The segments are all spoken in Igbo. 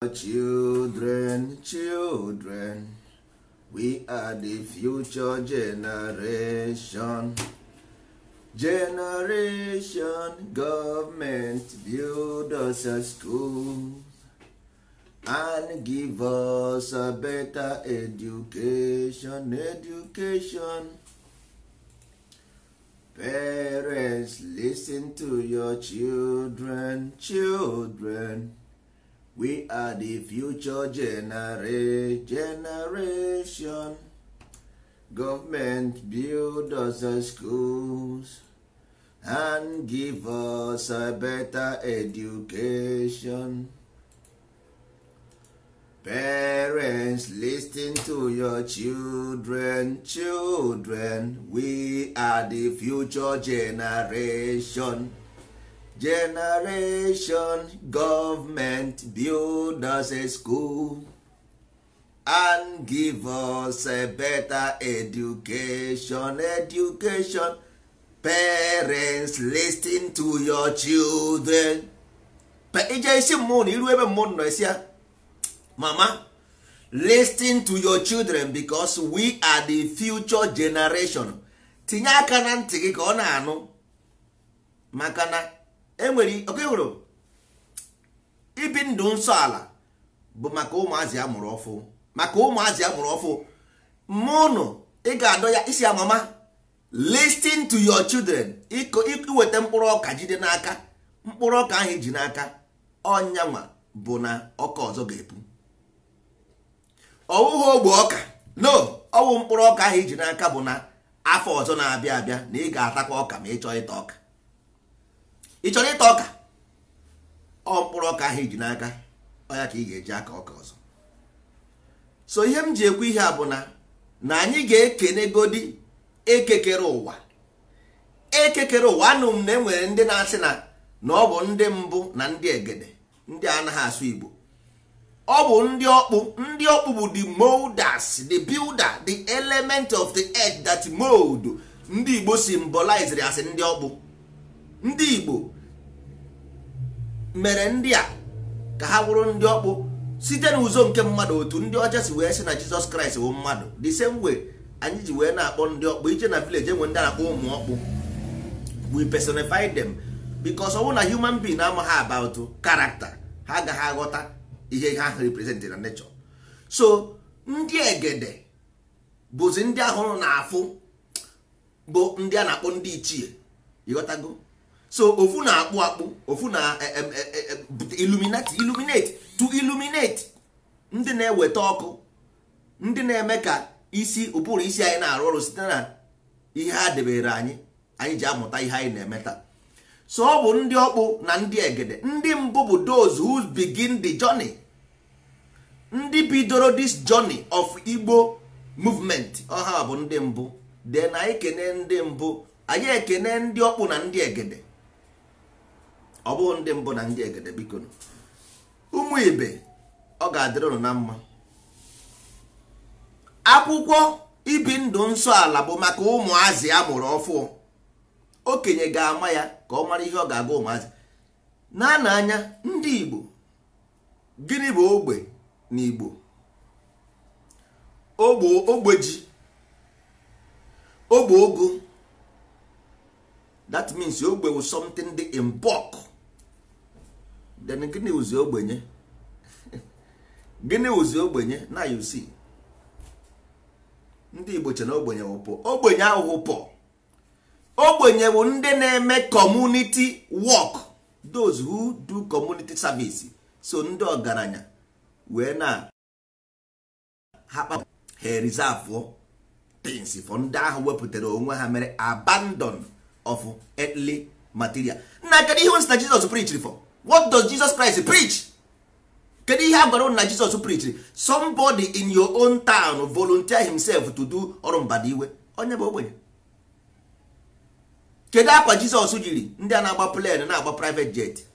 Children, children, we are the future generation. Generation, government build us a school and give us a better education, education. Parents, listen to your children, children. we are the future generation government build us schools and give us a better education parents ten to your children children we are the future generation generation government build us a school and give us a better education education parents ten to your children ije isi mmụọ na iru ebe mmụọ nọ esi ya mama listen to your children because we are the future generation tinye aka na ntị gị ka ọ na-anụ maka na enwere oke hụrụ ibi ndụ nsọ ala bụ maka ụmụazị amụrụ ọfụ maka ụmụazị amụrụ ọfụ mụnụ ị ga-adọ ya isi amama listin to your children iweta mkpụrụ ọka jide n'aka mkpụrụ ọka ahụ iji n'aka ọnyanwa bụ na ọka ọzọ ga-epu ọwụghị ogbe ọka no ọwụ mkpụrụ ọka ahụ iji n'aka bụ na afọ ọzọ na-abịa abịa na ị ga-atakwa ọka ma ị chọọ ịta ọka ị chọrọ ịta ọka ọ mkpụrụ ọka ahụ iji n'aka ọ ya ka ị ga-eji aka ọka ọzọ so ihe m ji ekwu ihe a bụ na na anyị ga-ekenegodi ekekere ụwa ekekere ụwa anụ m na enwere ndị na-asị na na ọ bụ ndị mbụ na ndị egede ndị anaghị asụ Igbo ọ bụ ndị ọkpụ ndị ọkpụ bụ the molders the builder the element of the earth that mold ndị Igbo symbolized asị ndị ọkpụ ndị Igbo mere ndị a ka ha bụrụ ndị ọkpụ site n'ụzọ nke mmadụ otu ndị ọcha si wee sị na Jizọs Kraịst bụ mmadụ the same way anyị ji wee na-akpọ ndị ọkpụ ije na village enwe ndị na-akpọ ụmụ ọkpụ we personify them because ọ bụ na human being amaghị about character ha agaghị aghọta ihe ha represent na nature so ndị egede bụzi ndị ahụrụ na afụ bụ ndị a na-akpọ ndị ichie ịghọtago so ofu na-akpụ akpụ ofu na eh, eh, eh, illuminati illuminate to illuminate ndị na-eweta ọkụ ndị na-eme ka isi ụbụrụ isi anyị na-arụ ọrụ site na ihe ha debere anyị anyị ji amụta ihe anyị na-emeta so ọ bụ ndị ọkpụ na ndị egede ndị mbụ bụ those who begin the journey ndị bidoro this journey of Igbo movement ọha bụ ndị mbụ de anyị kene ndị mbụ anyị ekene ndị ọkpụ na ndị egede ọ bụghị ndị mbụ na ndị egede biko ụmụ ibe ọ ga-adịrị na mma akwụkwọ ibi ndụ nsọ ala bụ maka ụmụazị a mụrụ ọfụụ okenye ga-ama ya ka ọ mara ihe ọ ga-aga ụmụazị na na anya ndị igbo gịnị bụ ogbe na igbo ogbe ogbeji ogbe ogo that means ogbe wu something dị in bulk then gịnị ogbenye gịnị ụzi ogbenye na uc ndị Igbo na ogbenye wụpụ ogbenye ahụ pọ ogbenye bụ ndị na-eme community work those who do community service so ndị ọgaranya wee na ha reserve things for ndị ahụ wepụtara onwe ha mere abandon of earthly material na kedu ihe nsị na Jizọs preached what does jesus christ preach kedu ihe a gwara na jesus preach somebody in your own town volunteer himself to do ọrụ mbada iwe onye bụ ogbenye kedu akwa jizọs jiri ndị a na-agba plane na-agba private jet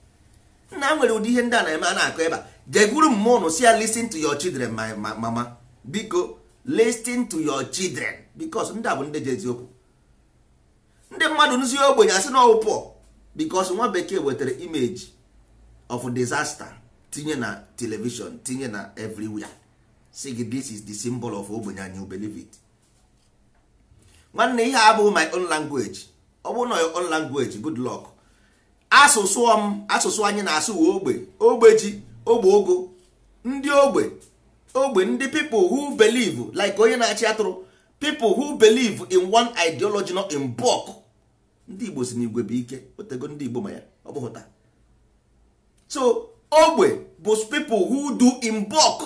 nna nwere ụdị ihe ndị a na-eme a na-akọ ebe a jegwuru mmụọ ụnụ si ya listen to your children my mama biko listen to your children because ndị a bụ ndị ndị mmadụ nzi ogbenye asị na ọwụ pụọ nwa bekee wetara imeji of disaster tinye na television tinye na everywhere si gị this is the symbol of ogbenye anyị you believe it nwanne ihe abụghị my own language ọ bụrụ own language good luck asụsụ m asụsụ anyị na-asụ we ogbe ogbeji ogbe ogo ndị ogbe ogbe ndị people who believe like onye na-achị atụrụ people who believe in one ideology not in bulk ndị Igbo si n'igwe bụ ike otego ndị Igbo ma ya ọ bụghụta so ogbe bụ people who do in bulk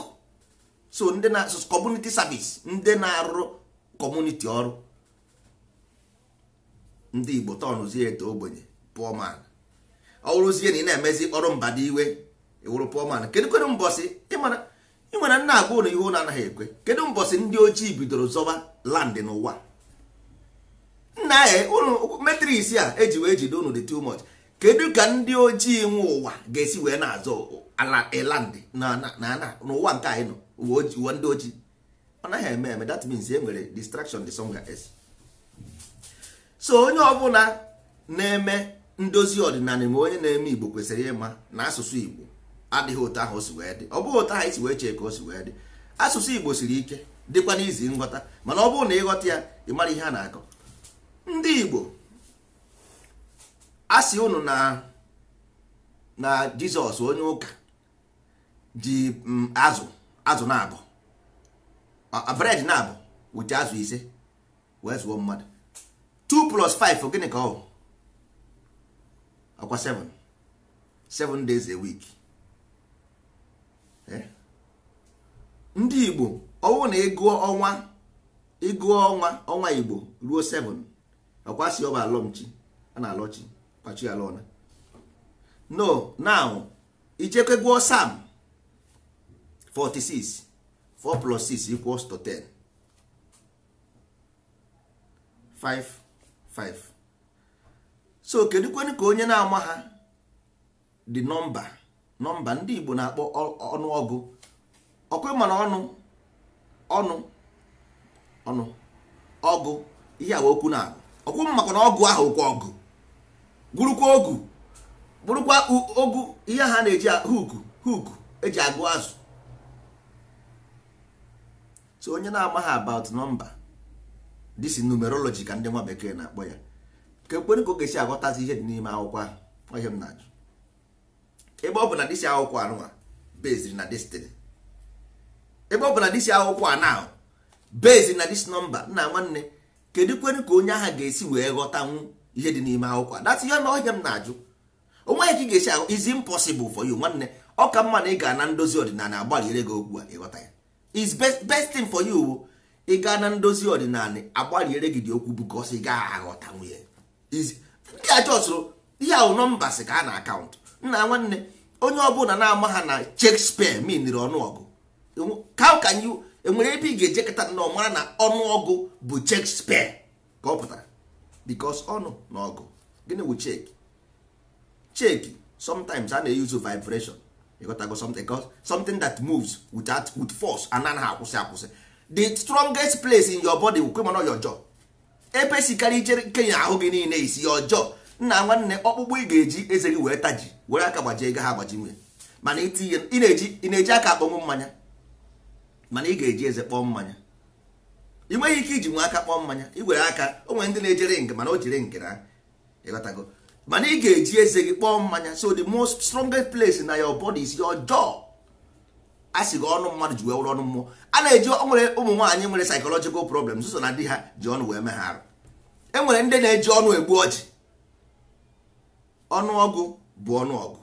so ndị na community service ndị na-arụ community ọrụ ndị igbo tọnụzie eto ogbenye poor man ọ bụrụzie na ị na-emezi ọrụ mba dị iwe iwụrụ poor kedu kedụ kedụ mbọsị ịmara ị nwere nna agwa ụlọ ihe ụlọ anaghị ekwe kedu mbọsị ndị ojii bidoro zọba land n'ụwa nna ya ụlọ metris a eji wee jide ụnụ dị too much kedu ka ndị ojii nwe ụwa ga-esi wee na-azọ ala elandị n'ụwa nke anyị nọ uwe ndị ojii ọ naghị eme eme that means e nwere distraction the song is so onye ọbụla na-eme ndozi ọdịnala ma onye na-eme igbo kwesịrị ịma na asụsụ igbo adịghị ụtọ ahụ o si wee dị ọ bụghị otu ahụ isi wee chee ka o si wee dị asụsụ igbo siri ike dịkwa n'izi nghọta mana ọ bụrụ na ịghọta ya ị mara ihe a na-akọ ndị igbo asị unu na na jizọs onye ụka ji mm, azụ azụ na-abụ bred na-abụ wụchi azụ ise wee zụọ mmadụ 2 plus 5 gịnị ka ọ ọkwa 7 7 days a week eh? ndị igbo ọnwụ na ịgụọ ọnwa ịgụọ ọnwa ọnwa igbo ruo 7 ọkwa si ọba alọmchi a na-alọchi machi no now ichekwegwuo sam 46 4 plus 6 equals to 10 5 5 so kwenu ka onye na-ama ha dị nọmba nọmba ndị Igbo na-akpọ ọnụọgụ ọkwe mana ọnụ ọnụ ọnụ ọgụ ihe awa okwu na-agụ ọkwụ maka na ọgụ ahụ okwu ọgụ gwurukwa ogu bụrụkwa ogu ihe ha na-eji huku huku eji agụ azụ so onye na-amaghị about nọmba, this numerology ka ndị nwa bekee na-akpọ ya ka ekpere ka ọ ga-esi aghọtazi ihe dị n'ime akwụkwọ ahụ ihe m na-ajụ ebe ọ bụ na dịsi akwụkwọ anụnwa beziri na destiny ebe ọ bụ na dịsi akwụkwọ anọ beziri na dis nọmba nna nwanne kedu kwere ka onye agha ga-esi wee ghọtanwu ihe dị n'ime akwụkwọ that's ihe ihe m na-ajụ onweghị ka ị ga-esi ahụ is impossible for you nwanne ọ ka mma na ị ga na ndozi ọdịnala agbalịre gị okwu a ịghọta ya is best thing for you ị gaa na ndozi ọdịnala agbalịre gị dị okwu because ị gaghị aghọta nwunye ndị a ihe ahụ nọmba sị ka a na akaụntụ nna nwanne onye ọbụla na-ama ha na Shakespeare miniri ọnụọgụ how can you enwere ebe ị ga-ejekọta nnọọ mara na ọnụọgụ bụ Shakespeare ka ọ pụtara because ọnụ oh, na ọgụ gịnị wụ cheki cheki sometimes a na-eyuzu vibration ịghọtago something something that moves without with force anaghị akwụsị akwụsị the strongest place in your body wụkwe mana your jaw epesikarị ichere kenya ahụ gị niile isi your jaw nna nwanne ọkpụkpụ ị ga-eji eze gị wee taji were aka gbajie ego ha agbaji nwunye mana ị na-eji aka akpọnwụ mmanya mana ị ga-eji eze kpọọ mmanya ị nweghị ike iji nwe aka kpọọ mmanya igwere aka o nwere ndị na-ejere nke mana o jiri nke na ịghọtago mana ị ga-eji eze gị kpọọ mmanya so the most strongest place na your body is your jaw a sị gị ọnụ mmadụ ji wee wụrụ ọnụ mmụọ a na-eji nwere ụmụ nwaanyị nwere psychological problems so na di ha ji ọnụ wee mee ha arụ e nwere ndị na-eji ọnụ egbu ọchị ọnụọgụ bụ ọnụọgụ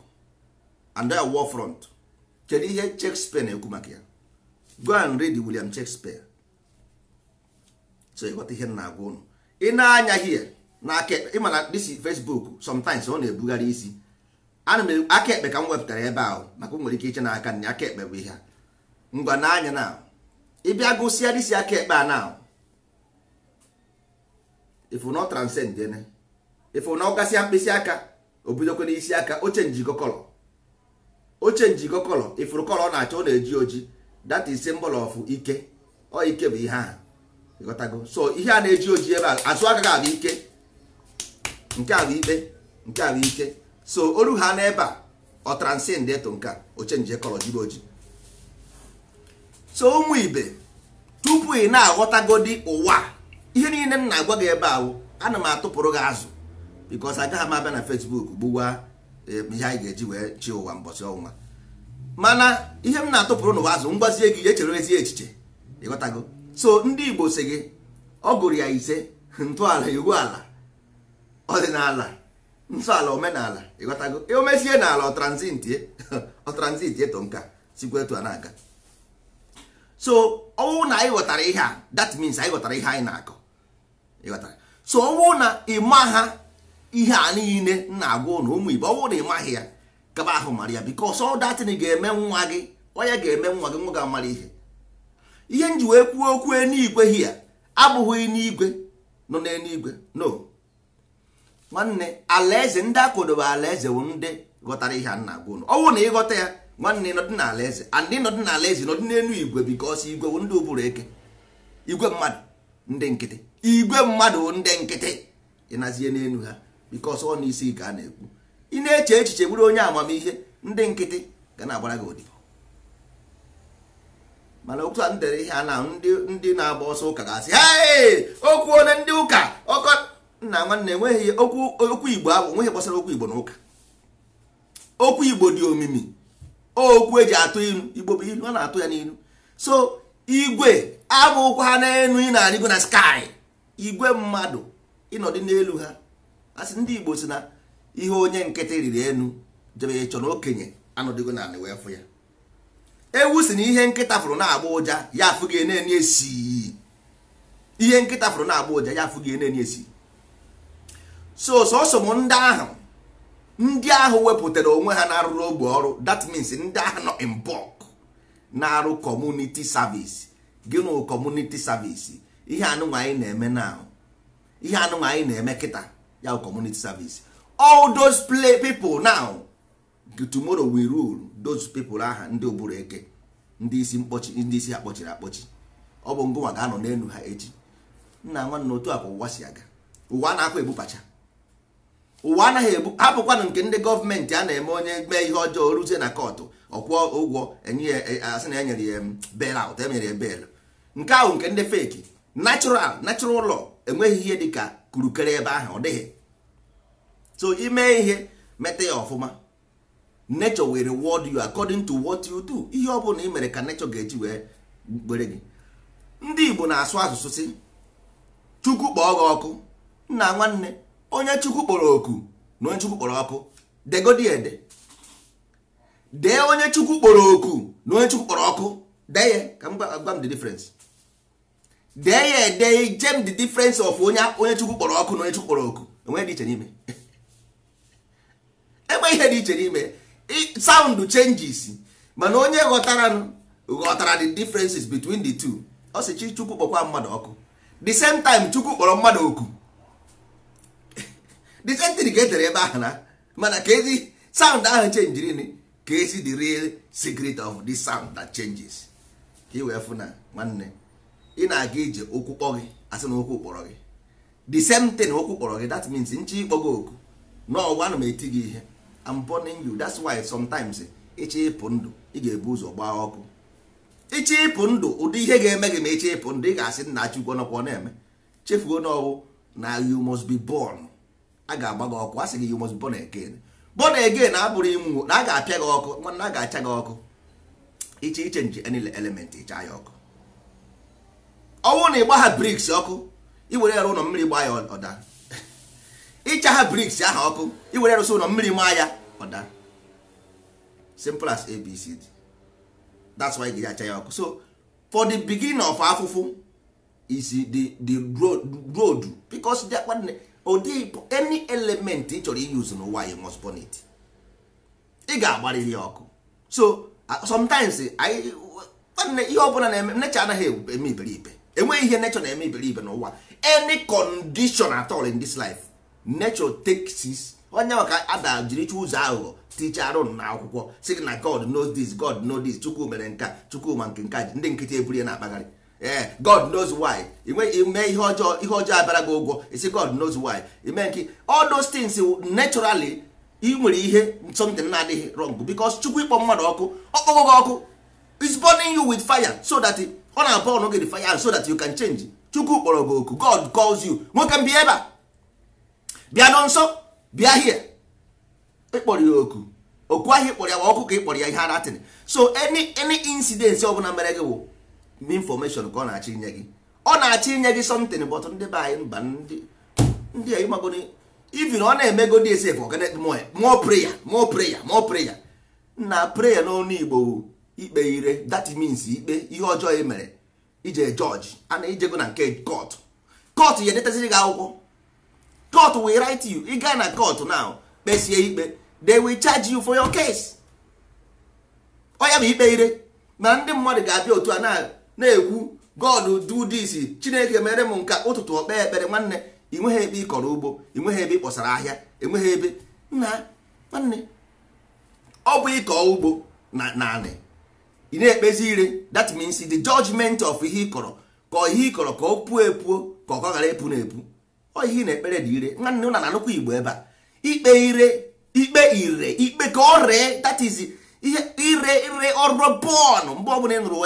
and war front kedu ihe Shakespeare na-ekwu maka ya go and read William Shakespeare so ịghọta ihe m na-agwa ụnụ ị na-anya hie na aka ekpe ịma na disi Facebook sometimes ọ na-ebugharị isi ana m e-, aka ekpe ka m wepụtara ebe ahụ maka o nwere ike iche na aka nne aka ekpe bụ ihe a ngwa na-anya na ịbịa gụsịa disi aka ekpe a na ifu na ọ transcend ene ifu na ọ gasịa mkpịsị aka obidokwe n'isi aka oche njikọ kọlọ oche njikọ kọlọ ifuru kọlọ ọ na-achọ ọ na-eji oji that is symbol of ike ọ ike bụ ihe ahụ ịghọtago so ihe a na-eji oji ebe a azụ agaghị abụ ike nke abụ ikpe nke abụ ike so oru ha n'ebe a ọ ndị ịtụ nke oche nje kọrọ jibe oji so ụmụ ibe tupu ị na-aghọtagodi ụwa ihe niile m na-agwa gị ebe ahụ ana m atụpụrụ gị azụ because agaghị m abịa na Facebook gbuwa e, ihe anyị ga-eji wee chi ụwa mbọchị ọnwa mana ihe m na-atụpụrụ n'ụwa azụ mgbazie gị echere ezi echiche ịghọtago so ndị igbo si gị ọ gụrụ ya ise ntọala iwu ala ọdịnala ntọala omenala ịghọtago e, omesie n'ala ọtranzitie to nka sikwa etu a na-aga so ọnwụ na anyị ghọtara ihe a that means anyị ghọtara ihe anyị na-akọ ịghọtara so ọnwụ na ịma ha ihe a niile na-agwa ụnụ ụmụ igbo ọnwụ na ịmaghị ya kaba ahụ mara ya because ọ datin ga-eme nwa gị onye ga-eme nwa gị nwa ga-amara ihe ihe nji wee kwuo okwu eluigwe hia abụghị n'igwe nọ n'eluigwe no nwanne alaeze ndị akodobe alaeze bụ ndị ghọtara ihe a na-agwa ụnụ ọnwụ na ịghọta ya nwanne nọdị na alaeze andị nọdị na alaeze nọdị n'elu igwe bikos igwe bụ ndị ụbụrụ eke igwe mmadụ ndị nkịtị igwe mmadụ ndị nkịtị ịnazie n'elu ha bikos ọ n'isi ka a na-ekwu ị na-eche echiche bụrụ onye amamihe ndị nkịtị ga na-agbara gị ụdị mana otu a dere ihe a na ndị na-agba ọsọ ụka ga-asị okwu onye ndị ụka ọkọ nna nwanne enweghị okwu igbo ahụ nweghị gbasara okwu igbo n'ụka okwu igbo dị omimi okwu eji atụ ilu igbo bụ ilu a na-atụ ya n'ilu so igwe abụkwa ha n'elu ị na-arịgo na skai igwe mmadụ ịnọdụ n'elu ha asị ndị igbo si na ihe onye nkịtị riri elu jebe ịchọ na okenye anọdịgo na anị wee fụ ya ewu si na ihe nkịta fụrụ na-agba ụja ya afụghị eneni esi ihe nkịta fụrụ na-agba ụja ya afụghị eneni esi so sọsọ m ndị ahụ ndị ahụ wepụtara onwe ha na-arụrụ ogbe ọrụ that means ndị ahụ nọ in bulk na-arụ community service gịnụ nụ community service ihe anụnwa anyị na-eme na ihe anụnwa anyị na-eme kịta ya community service all those play people now tomorrow we rule those people aha ndị oburu eke ndị isi mkpọchi ndị isi ha kpọchiri akpọchi ọ bụ ngụwa ga-anọ n'elu ha echi nna nwanne otu a bụ ụwa si aga ụwa a na-akwa ebupacha ụwa anaghị ebu hapụkwanụ nke ndị gọọmenti a na-eme onye mee ihe ọjọọ ruzie na kọtụ ọkwụọ ụgwọ enye asị e, na enyere ya bel aụt enyere ya bel nke ahụ nke ndị feki natural natural ụlọ enweghị ihe dị ka kurukere ebe ahụ ọ dịghị so ime ihe meta ya ọfụma nature will reward you according to what you do ihe ọ bụla ị mere ka nature ga-eji wee were gị ndị Igbo na-asụ asụsụ si chukwu kpọọ gị ọkụ nna nwanne onye chukwu kpọrọ oku na onye chukwu kpọrọ ọkụ degodi ede dee onye chukwu kpọrọ oku na onye chukwu kpọrọ ọkụ dee ya ka m gwa m the difference dee ya ede jem the difference of onye onye chukwu kpọrọ ọkụ na onye chukwu kpọrọ oku enweghị dị iche n'ime enweghị ihe dị iche n'ime sound changes mana onye ghọtara ghọtara the differences between the two ọ sị chi chukwu kpọkwa mmadụ ọkụ the same time chukwu kpọrọ mmadụ oku the same thing ka e tere ebe ahụ na mana ka ezi sound ahụ chenjirin ka ezi the real secret of the sound that changes ka ị wee fụ na nwanne ị na-aga ije ụkwụ kpọ gị asị na ụkwụ kpọrọ gị the same thing ụkwụ kpọrọ gị that means nche ịkpọ gị oku n'ọgwa ana m eti gị ihe am burning you that's why sometimes ịchọ eh, ịpụ ndụ ị ga-ebu ụzọ gbaa ọkụ ịchọ ịpụ ndụ ụdị ihe ga-eme gị ma ịchọ ịpụ ndụ ị ga-asị nna Chukwu nọkwa na-eme chefuo n'ọwụ na you must be born a ga-agba gị ọkụ a sị gị you must be born again born again abụrụ ịnwụ na a ga-apịa gị ọkụ mana a ga-acha gị ọkụ iche iche nji any element ịcha ya ọkụ ọnwụ na ịgba ha briks ọkụ were ya ụlọ mmiri gbaa ya ọda ịcha ha briks aha ọkụ iwere rụsị ụlọ mmiri maa ya daa simple as abcd that's why gị acha ya ọkụ so for the beginning of afụfụ is the the road because ụdị any element ị chọrọ use n'ụwa you must burn it ị ga-agbarịrị ya ọkụ so uh, sometimes anyị ihe ọbụla na-eme nature anaghị eme iberibe enweghị ihe nature na-eme iberibe n'ụwa any condition at all in this life nature onye maka ada jiri chụ ụzọ aghụghọ ticharụ na akwụkwọ si gị na god knows this god knows this chukwu mere nka chukwu ma nke nka ndị nkịtị ebur ya na-akpagharị ee eh, god knows why inweghị ime ihe ọjọọ ihe ọjọọ abara gị ụgwọ isi god knows why ime nke all those things naturally ị nwere ihe something na-adịghị wrong because chukwu ịkpọ mmadụ ọkụ ọkpọgo gị ọkụ is burning you with fire so that ọ na abọ ọnụ gị fire so that you can change chukwu kpọrọ gị oku god calls you nwoke mbi ebe a bịa nọ nsọ bịa hie ịkpọrọ ya oku oku ahịa ịkpọrọ ya wa ọkụ ka ịkpọrọ ya ihe anatin so any any incident ọbụla mere gị wụ information ka ọ na achị inye gị ọ na achị inye gị something bọt ndị be anyị mba ndị a ịmagodi even ọ na-emego dị ese mụọ prayer mụọ prayer mụọ prayer na prayer n'ọnụ Igbo ikpe ire that means ikpe ihe ọjọọ e mere ije jọji a na ijego na nke court court ya edetaziri gị akwụkwọ court will rit you ị gaa na court now kpesie ikpe they will charge you for your case ọ bụ ikpe ire na ndị mmadụ ga-abịa otu a na-ekwu god do this chineke mere m nka ụtụtụ ọkpe ekpere nwanne ị nweghị ebe ị kọrọ ugbo ị nweghị ebe ị kpọsara ahịa enweghị ebe nna nwanne ọ bụ ịkọ ugbo na naanị ị na-ekpezi ire that means the judgment of ihe ị kọrọ ka ihe ị kọrọ ka ọ puo epuo ka ọ ghara epu na epu ọ ihe na ekpere dị ire nwanne ụna na-anụkwa igbo ebe a ikpe ire ikpe ire ikpe ka ọ ree that is ihe ire ire ọrụ bọọlụ mgbe ọbụla ị nụrụ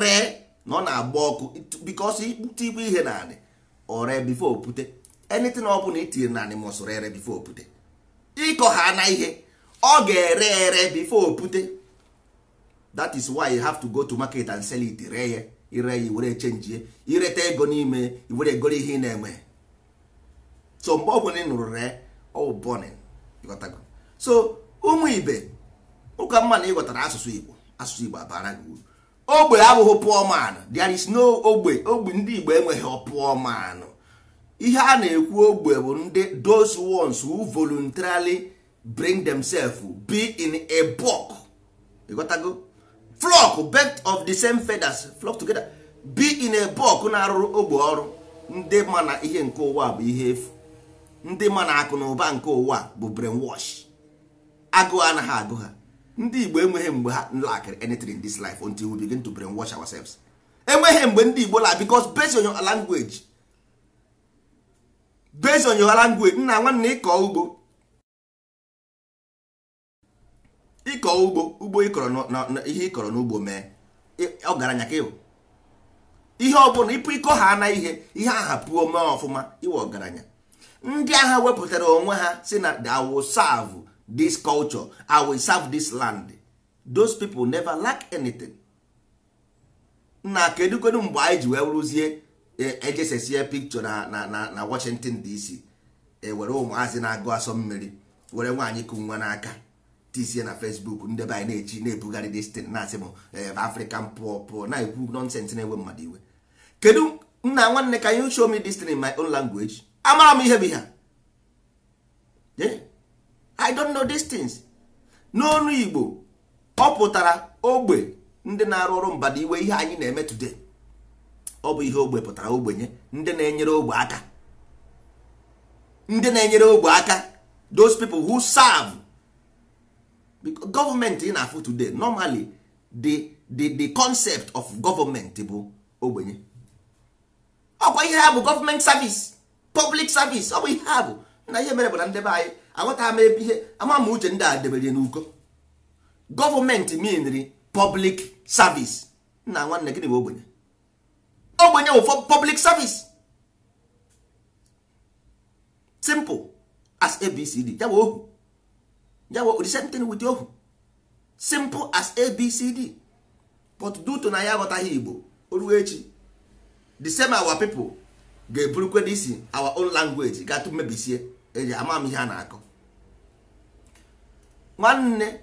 ree na ọ na-agba ọkụ because ikpute ikpe ihe na anị ọre bifo opute anything ọ bụla itinye na anị mụsụrụ ere bifo opute ịkọ ha na ihe ọ ga-ere ere bifo opute that is why you have to go to market and sell it ree ya ire ya were chenjie ireta ego n'ime were goro ihe ị na eme so mgbe ọgwụ ị nụrụ ree ọwụ bọnin ịghọtago so ụmụ ibe ụka mma na ịghọtara asụsụ igbo asụsụ igbo abara gị uru ogbe abụghị pụọ man there is no ogbe ogbe ndị igbo enweghị pụọ man ihe a na-ekwu ogbe bụ ndị those ones who voluntarily bring themselves be in a bulk ịghọtago flock bent of the same feathers flock together be in a bulk na-arụrụ ogbe ọrụ ndị ma na ihe nke ụwa bụ ihe efu ndị ma na akụ na ụba nke ụwa bụ brainwash agụụ anaghị agụ ha ndị igbo enweghị mgbe ha lack anything in this life until we begin to brainwash ourselves enweghị mgbe ndị igbo la because based on your nna nwanna ịkọ ugbo ịkọ ugbo ugbo ịkọrọ ihe ịkọrọ n'ugbo mee ihe ọ bụla ịpụ ịkọ ha na ihe ihe aha pụọ mee ọfụma iwe ọgaranya ndị agha wepụtara onwe ha si na I will serve this culture I will serve this land those people never lack anything na kedu kedu mgbe anyị ji wee rụzie ejesesie e picture na na na Washington DC ewere ụmụazị na-agụ asọ mmiri were nwaanyị kụ nwa n'aka tisie na Facebook ndị anyị na-echi na-ebugharị this thing na-asị m e, African pụọ pụọ na-ekwu nonsense na-ewe mmadụ iwe kedu nna nwanne ka you show me this thing in my own language amara m ihe bụ ihe i don't know these things n'onu igbo ọ pụtara ogbe ndị na-arụ ọrụ mbada iwe ihe anyị na-eme today ọ bụ ihe ogbe pụtara ogbenye ndị na-enyere ogbe aka ndị na-enyere ogbe aka those people who serve because government ị na-afụ today normally the, the, the concept of government bụ ogbenye ọkwa ihe ha bụ government service public service ọ bụ ihe a bụ na ihe mere bụ na ndebe anyị aghọta ama ebe ihe ama ma uche ndị a debere n'ugo. gọọmenti minri public service nna nwanne gịnị bụ ogbenye ogbenye bụ public service simple as abcd ya ohu ya bụ the same thing ohu simple as abcd but due to na ya aghọtaghị igbo o echi the same our people ga-eburukwe isi our own language gatụ mmebisie eji ama m ihe a na-akọ nwanne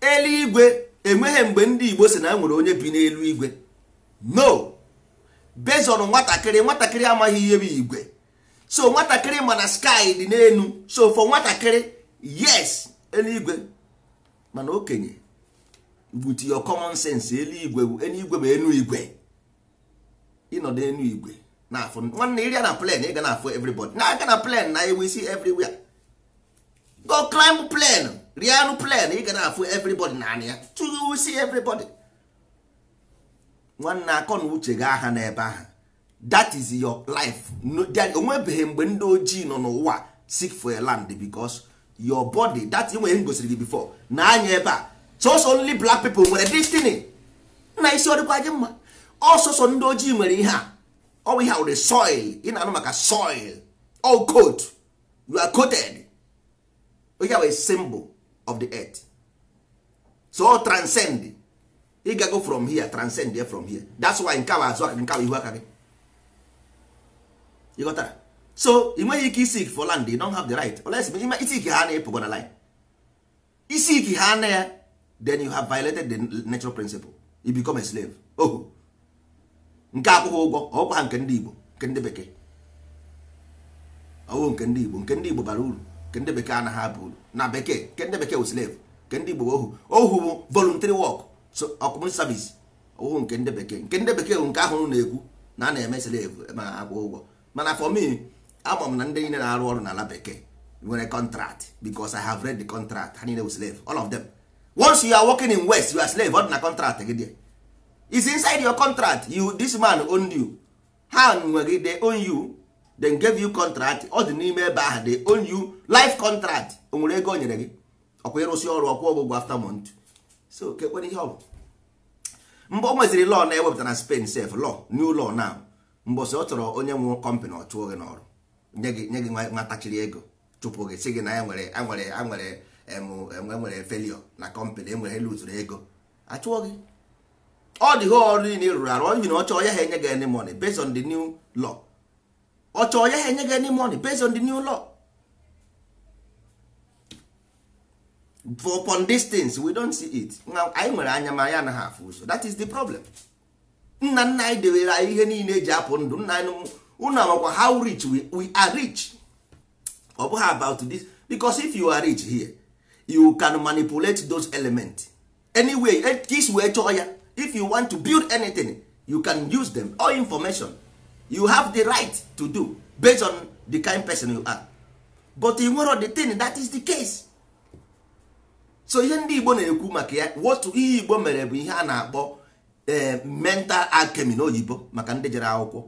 eluigwe enweghị mgbe ndị Igbo si na enwere onye bi n'elu igwe no bezon nwatakịrị nwatakịrị amaghị ihe bụ igwe so nwatakịrị mana sky dị n'elu so for nwatakịrị yes eluigwe mana okenye but your common sense eluigwe bụ eluigwe bụ enu igwe ịnọdụ enu igwe na-afụ nwanne iri na plane ị ga na-afụ everybody na-aga na plane na ewu isi everywhere go climb plane rianụ plane ị ga na-afụ everybody naanị ya tụghị isi everybody nwanne akọ na uche gị aha n'ebe ahụ that is your life onwebeghị mgbe ndị ojii nọ n'ụwa seek for a land because your body that nwere m gosiri gị before na anya ebe a sọsọ only blak people nwere destiny na isi ọdịkwa gị mma ọsọsọ oh, ndị ojii nwere ihe a we ihe awụrụ soil ị na-anụ maka soil all coat you are coated onye bụ symbol of the earth so transcend ị gago from here transcend here from here that's why nke azụ aka nke ihu aka eh? gị ịghọtara so ị nweghị ike isi for land you don't have the right unless isi ike ha na ịpụgo na isi ike ha na ya then you have violated the natural principle you become a slave oh nke akwụghị ụgwọ ọkwa ha nke ndị Igbo nke ndị bekee ọwụ nke ndị Igbo nke ndị Igbo bara uru nke ndị bekee anaghị abụ uru na bekee nke ndị bekee wụ slave nke ndị Igbo ohu ohu bụ voluntary work so ọkụmụ service ọwụ nke ndị bekee nke ndị bekee bụ nke ahụ na-ekwu na a na-eme slave ma akwụ ụgwọ mana for me ama m na ndị niile na-arụ ọrụ n'ala bekee nwere contract because I have read the contract ha niile wụ slave all of them once you are working in west you are slave ọ dị na contract gị dị is inside your contract you this man owned you ha nwe gị they own you then gave you contract ọ dị n'ime ebe ahụ they own you life contract o nwere ego o nyere gị ọkwa ịrụsị ọrụ ọkwa ọgwụgwọ after month so kekwere ihe ọ mgbe o nweziri law na-ewepụta na e Spain sef law new law now mbọsị ọ chọrọ onye nwe company ọ chụọ gị n'ọrụ nye gị nye gị nwatachiri ego chụpụ gị sị gị na enwere nwere nwere nwere nwere felio na company enwere lutụrụ ego achụọ gị all the whole niile ị rụrụ arụ ọ na ọchọ ya ha enye gị any money based on the new law ọchọ ya ha enye gị any money based on the new law for upon these things we don't see it anyị nwere anya ma ya anaghị afụ ụzọ that is the problem nna nna anyị dewere anyị ihe niile eji apụ ndụ nna anyị unu amakwa how rich we, we are rich ọ bụghị about this because if you are rich here you can manipulate those elements anyway this e, wee chọọ ya if you want to build anything you can use them all information you have the right to do based on the kind person you are but in nwere the thing that is the case so ihe ndị igbo na-ekwu maka ya wotu ihe igbo mere bụ ihe a na-akpọ eh, mental alchemy na oyibo maka ndị jere akwụkwọ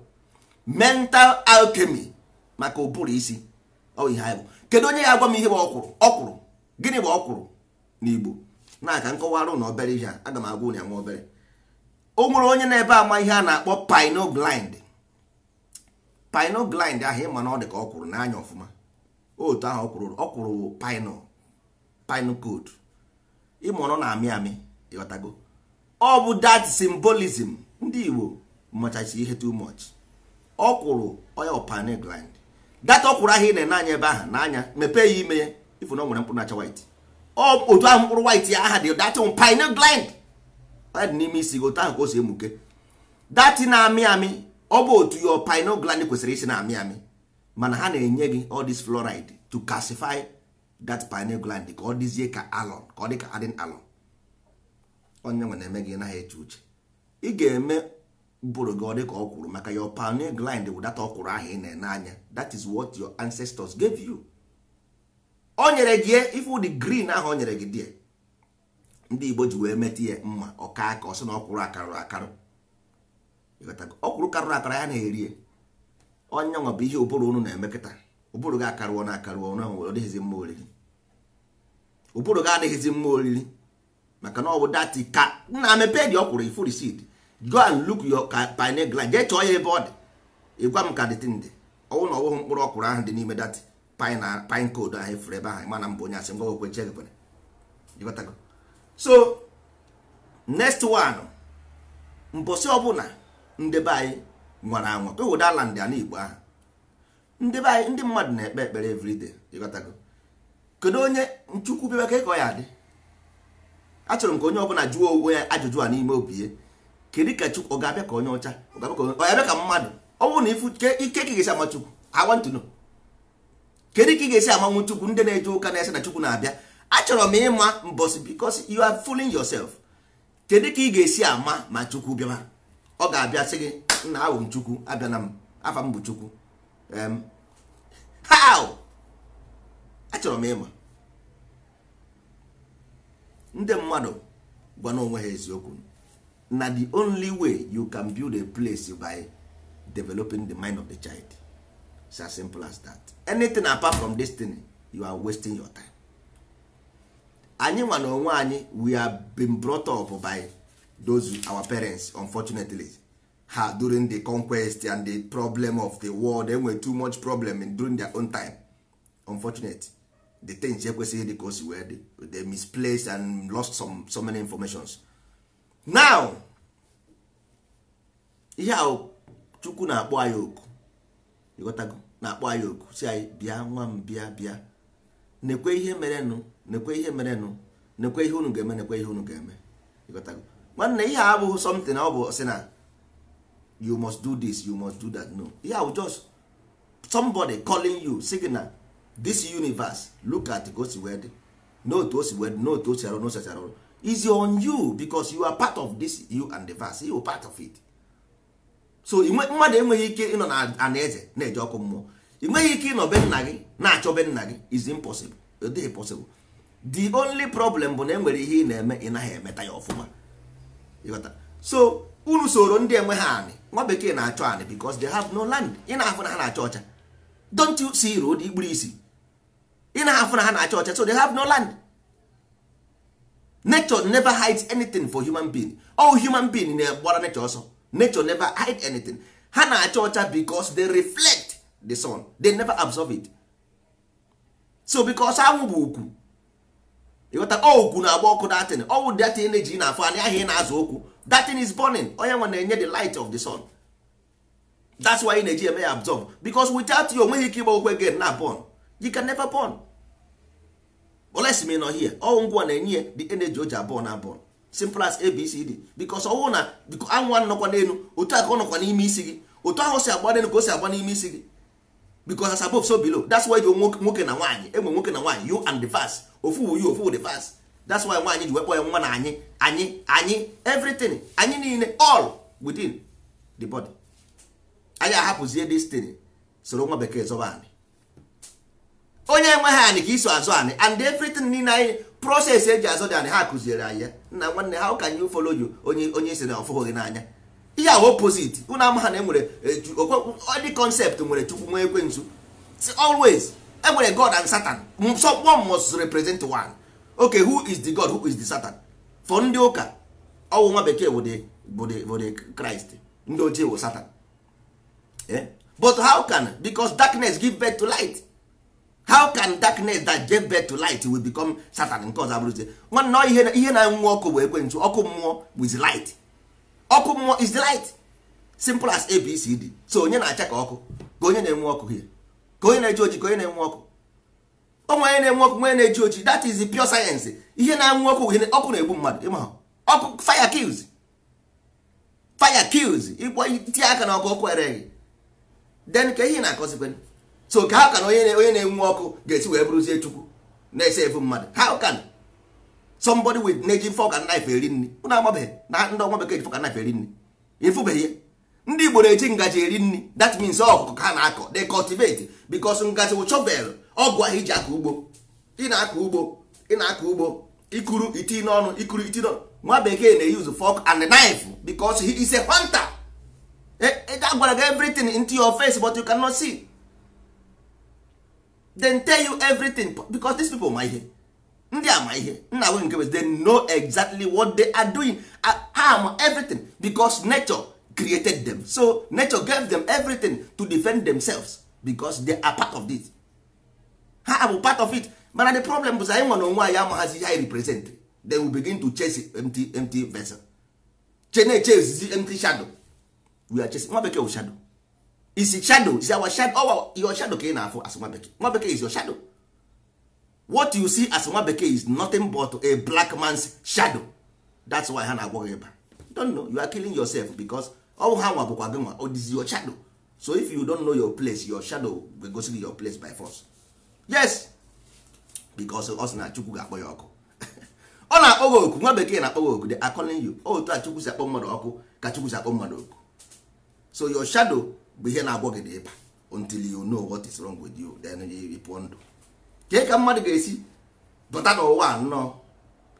mental alchemy maka ụbụrụ isi ihe kedu onye ya agwa m ihe bụ ọkwụrụ ọkwụrụ gịnị bụ ọkwụrụ n'igbo na aka nkọwarụ na obere ihe a aga m agwa ụnyaahụ obere o nwere onye na-ebe ama ihe a na-akpọ pinoblind pinoblind ahụ ịma na ọ dị ka ọ kwụrụ n'anya ọfụma otu ahụ ọ kwụrụ ọ kwụrụ pino pino code ịma ọ na-amị amị ịghọtago ọ bụ dat symbolism ndị Igbo machasi ihe too much ọ kwụrụ oya pinoblind data ọ kwụrụ ahụ ị na-ene anya ebe ahụ n'anya mepee ya ime ya ifu na ọ nwere mkpụrụ nacha white otu ahụ mkpụrụ white ya aha dị data pinoblind ọ n'ime isi gị otu ahụ ka o si emuke dati na-amị amị ọ bụ otu your pineal gland kwesịrị isi na-amị amị mana ha na-enye gị all this fluoride to calcify that pineal gland ka ọ dịzie ka alon ka ọ dị ka adịn alon onye nwe na-eme gị naghị eche uche ị ga-eme bụrụ gị ọ dị ka ọ kwuru maka your pineal gland bụ data ọ kwuru ahụ ị na-ene anya that is what your ancestors gave you o nyere gị ifu dị green ahụ o nyere gị die ndị igbo ji wee meta ya mma ọka aka ọsị na ọkwụrụ akarụrụ akarụ ọkwụrụ karụrụ akara ya na-eri onye nwa bụ ihe ụbụrụ unu na-emekịta ụbụrụ gị akarụọ na akarụọ na nwere ọdịghịzi mma oriri ụbụrụ gị adịghịzi mma oriri maka na ọ bụ dati ka nna mepee dị ọkwụrụ ifuru sid go and look your pineal gland jee chọọ ya ebe ọ dị ịgwa m ka dịtị ndị ọwụ na ọwụghị mkpụrụ ọkwụrụ ahụ dị n'ime dati pine code ahụ efuru ebe ahụ mana m onye asị ngwa gwekwe nche gị so next one mbosi ọbụla ndị anyị nwara anwa ewedala ndị ana igbo ahụ ndị be anyị ndị mmadụ na-ekpe ekpere everyday ịghọtago kedu onye nchukwu bịa ka ịkọ ya adị achọrọ m ka onye ọbụla jụọ onwe ya ajụjụ a n'ime obi ya kedu ka chukwu ọ ga-abịa ka onye ọcha ọ ga-abịa ka mmadụ ọ bụrụ na ifu ike ka ị ga-esi ama chukwu I want to know kedu ka ị ga-esi amanwu chukwu ndị na-eje ụka na-ese na chukwu na-abịa achọrọ m ịma mbọsị because you are fooling yourself kedu ka ị ga-esi ama ma chukwu bịa ọ ga-abịa sị gị nna ahụ m chukwu abịa na m afa m bụ chukwu how achọrọ m ịma ndị mmadụ gwa onwe ha eziokwu na the only way you can build a place by developing the mind of the child it's as simple as that anything apart from destiny you are wasting your time anyị nwa na onwe anyị we have been brought up by those our parents unfortunately ha during the conquest and the problem of the world enwere too much problem during their own time unfortunate the things ekwesịghị dị ka o wee dị they misplaced and lost some so many informations now ihe ahụ chukwu na-akpọ anyị oku ịghọtago na-akpọ anyị oku si anyị bịa nwa m bịa bịa nekwe ihe merenụ nekwe ihe merenụ nekwe ihe unu ga-eme nekwe ihe unu ga-eme nwanne ihe a abụghị something ọ bụ sị na you must do this you must do that no ihe ahụ just somebody calling you signal this universe look at ka o note wee dị note o si arụ n'osi arụ is on you because you are part of this you and the verse you are part of it so mmadụ enweghị ike ịnọ na eze na-eje ọkụ mmụọ ị ike ịnọ be nna gị na-achọ be nna gị is impossible ọ dịghị possible the only problem bụ na enwere ihe ị na-eme ị naghị emeta ya ọfụma so unu soro ndị enwe ha anị nwa bekee na-achọ anị because they have no land ị na-afụ na ha na-achọ ọcha don't you see road ikpuru isi ị na-afụ na ha na-achọ ọcha so they have no land nature never hide anything for human being all human being na-agbara nature ọsọ nature never hide anything ha na-achọ ọcha because they reflect the sun they never absorb it so because anwụ bụ ịghọta ọgwụ oh, na-agba ọkụ datin ọwụ datin na-eji na-afọ anya ahịa ị na-azụ okwu datin is burning onye nwe na-enye the light of the sun that's why ị na-eji eme ya absorb because without you onweghị ike ịgba okwu again na born you can never born oles me nọ ọwụ ngwa na-enye ya the energy o ji abụọ na born simple as abcd because ọwụ na anwụ nọkwa n'elu otu a ọ nọkwa n'ime isi gị otu ahụ si agba n'elu ka o si agba n'ime isi gị because as above so below that's why nwoke na nwaanyị enwe nwoke na nwaanyị you and the verse ofu wu you ofu the verse that's why nwaanyị ji wepụ ya nwa na anyị anyị anyị everything anyị niile all within the body anyị ahapụzie destiny soro nwa bekee zọba anyị onye enweghị anyị ka iso azụ anyị and everything niile anyị proses eji azụ dị anyị ha kụziere anyị ya nna nwanne ha can you follow you onye onye isi na ọfụghị n'anya ihe ahụ opposite unu amaha na enwere e, ọdị concept nwere chukwu nwe ekwensu always enwere god and satan one must represent one okay who is the god who is the satan for ndị ụka ọwụ nwa bekee bụ the christ ndị ochie wụ satan eh? but how can because darkness give birth to light how can darkness that gave birth to light will become satan nke ọzọ abụrụzie nwanne ihe na-enwu ọkụ bụ ekwensu ọkụ mmụọ with light ọkụ mmụọ is light simple as abcd so onye na-acha ka ọkụ ka onye na-enwe ọkụ here ka onye na-eji oji ka onye na-enwe ọkụ onwe onye na-enwe ọkụ onye na-eji oji that is the pure science ihe na-enwe ọkụ ọkụ na-egbu mmadụ ịma ọkụ fire kills fire kills ịkpọ tie aka na ọkụ ọkụ ereghị then ka ihe na-akọzikwe so ka ha ka na onye na-enwe ọkụ ga-esi wee bụrụzie chukwu na-ese ebu mmadụ how can somebody with na-eji fork and knife eri nri ụnụ amabeghị na ndị ọnwa bekee ji fork and knife eri nri ịfụbeghị ndị igbo na-eji ngaji eri nri that means ọkụkọ ka na-akọ they cultivate because ngaji wụ chovel ọgụ ahụ iji akọ ugbo ị na-akọ ugbo ị na-akọ ugbo ikuru iti n'ọnụ ikuru iti n'ọnụ nwa bekee na-eyuzu fork and knife because he is a hunter e, e, a gwara gị everything into your face but you cannot see. Then tell you everything because these people ma ihe ndị ama ihe nna nwe nke they know exactly what they are doing harm ma everything because nature created them so nature gave them everything to defend themselves because they are part of this. ha abụ part of it mana the problem bụ anyị nwere onwe anyị amaghazi ihe anyị represent then we begin to chase empty empty vessel chene chase empty shadow we are chasing nwa bekee shadow is shadow is our shadow our your shadow ka ị na-afụ as nwa bekee nwa bekee is your shadow what you see as nwa bekee is nothing but a black man's shadow that's why ha na-agwọ gị ịba don't know you are killing yourself because ọwụ ha nwa bụkwa gị nwa ọ your shadow so if you don't know your place your shadow ga-egosi gị your place by force yes because ọ sị na chukwu ga-akpọ ya ọkụ ọ na-akpọ gị oku nwa bekee na-akpọ gị oku they are calling you oh, otu a chukwu si akpọ mmadụ ọkụ ka chukwu si akpọ mmadụ oku so your shadow bụ ihe na-agwọ gị na ịba until you know what is wrong with you then you pụọ ndụ kee ka mmadụ ga-esi bata n'ụwa nnọọ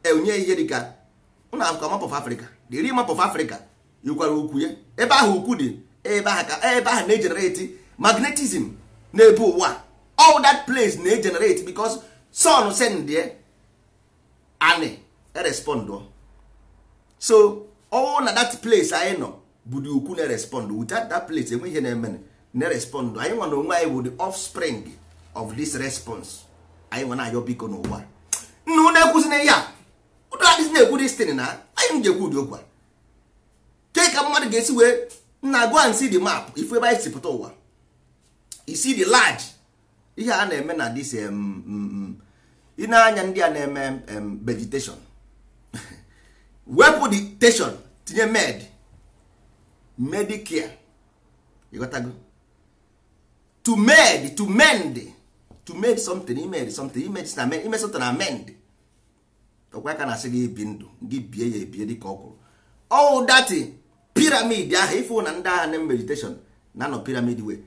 enye ihe dịka ụna akụkọ map of Africa the real map of Africa yikwara ukwu ya ebe ahụ ukwu dị ebe ahụ ka ebe ahụ na-egenerate magnetism na-ebu ụwa all that place na-egenerate because sun sendie ani erespond so all na that place anyị nọ bụ dị ukwu na erespond without that place enweghị ihe na-eme na-respond anyị nwa na onwe anyị bụ the offspring of this response anyị nwe na-ayọ biko n'ụwa nna unu ekwuzina ihe a ụdị adịzi na-ekwu destin na anyị m ga-ekwu ụdị okwu a ke ka mmadụ ga-esi wee na go and see map ifu ebe anyị si pụta ụwa isi dị large ihe a na-eme na dis ị na-anya ndị a na-eme vegetation wepụ the station tinye med medicare ịghọtago to med to mend to make something imere something ime something amend ọkwa ka na-asị gị ibi ndụ gị bie ya ebie dịka ọ kwụrụ ọwụ dati piramid ahụ ifu na ndị agha na meditation na anọ piramid wee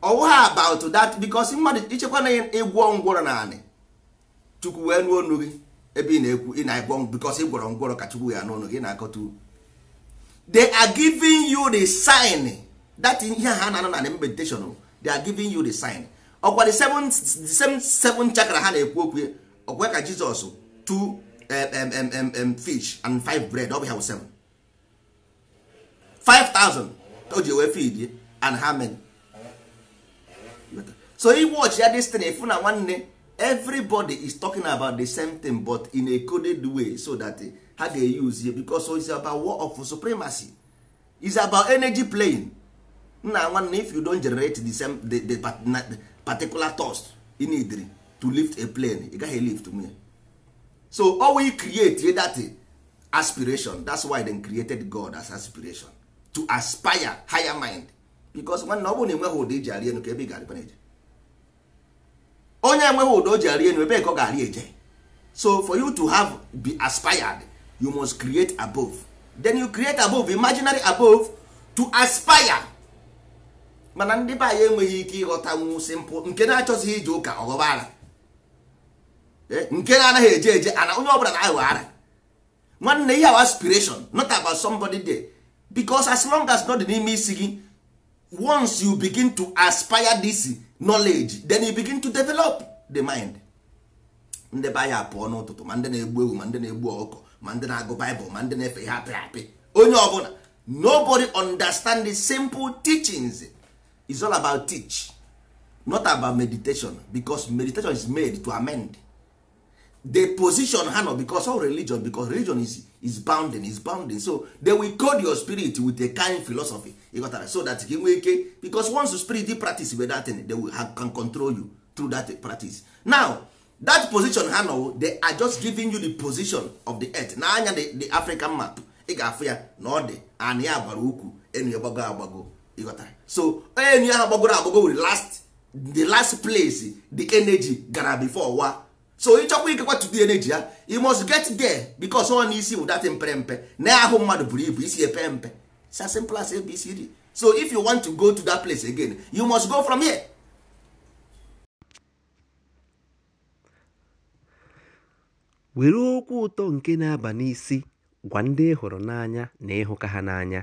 ọwụ about that because mmadụ ịchekwa na ịgwọ e ngwọrọ na anị chukwu wee nụ ọnụ gị ebe ị na-ekwu ị na-egwọ because e gwọrọ ngwọrọ ka chukwu ya n'ọnụ gị e na-akọta they are giving you the sign that ihe ha na-anọ na meditation oh. they are giving you the sign ọkwa the same seven chakra ha na-ekwu okwu ọkwa ka jizọs two eh, fish and five bread ọ bụ ya wụ seven 5000 o ji wee feed and how many so e watch ya this thing efu na nwanne everybody is talking about the same thing but in a coded way so that ha ga-use ya because it's about war of supremacy it's about energy playing nna nwanne if you don't generate the same the, the, the particular thrust in idri to lift a plane ị gaghị lift me so owe create that aspiration that's why they created God as aspiration to aspire higher mind because nwanne ọ bụrụ na enweghị ụda iji arị enu ka ebe ị ga-arịkwa eje onye enweghị ụda o ji arị enu ebe ka ọ ga-arị eje so for you to have be aspired you must create above then you create above imaginary above to aspire mana ndị be anyị enweghị ike ịghọtanwu simpụl nke na-achọzighị ije ụka ọghọba ara eh, nke na-anaghị eje eje ana onye ọbụla na-aghọ ara nwanne ihe awa aspiration not about somebody there because as long as not n'ime isi gị once you begin to aspire this knowledge then you begin to develop the mind ndị be anyị apụọ n'ụtụtụ ma ndị na-egbu ewu ma ndị na-egbu ọkụ ma ndị na-agụ baịbụl ma ndị na-efe ihe apị apị onye ọbụla nobody understand the simple teachings is all about teach not about meditation because meditation is made to amend the position ha because all religion because religion is, is bounding is bounding so they will code your spirit with a kind philosophy ịghọtara so that gị nwee ike because once the spirit dey practice with that thing they will have, can control you through that practice now that position ha nọ they are just giving you the position of the earth anya the, the african map ị ga-afụ ya na ọ dị anị gbara ukwu enu ya gbago agbago ịghọtara so onye enyi ahụ gbagoro agbago were last the last place the energy gara before wa so ịchọkwa ikekwa the energy ya you must get there because ọ na isi bụ datị mpere mpe na ahụ mmadụ buru ibu isi epe mpe it's simple as so if you want to go to that place again you must go from here. were okwu ụtọ nke na-aba n'isi gwa ndị hụrụ n'anya na ịhụka ha n'anya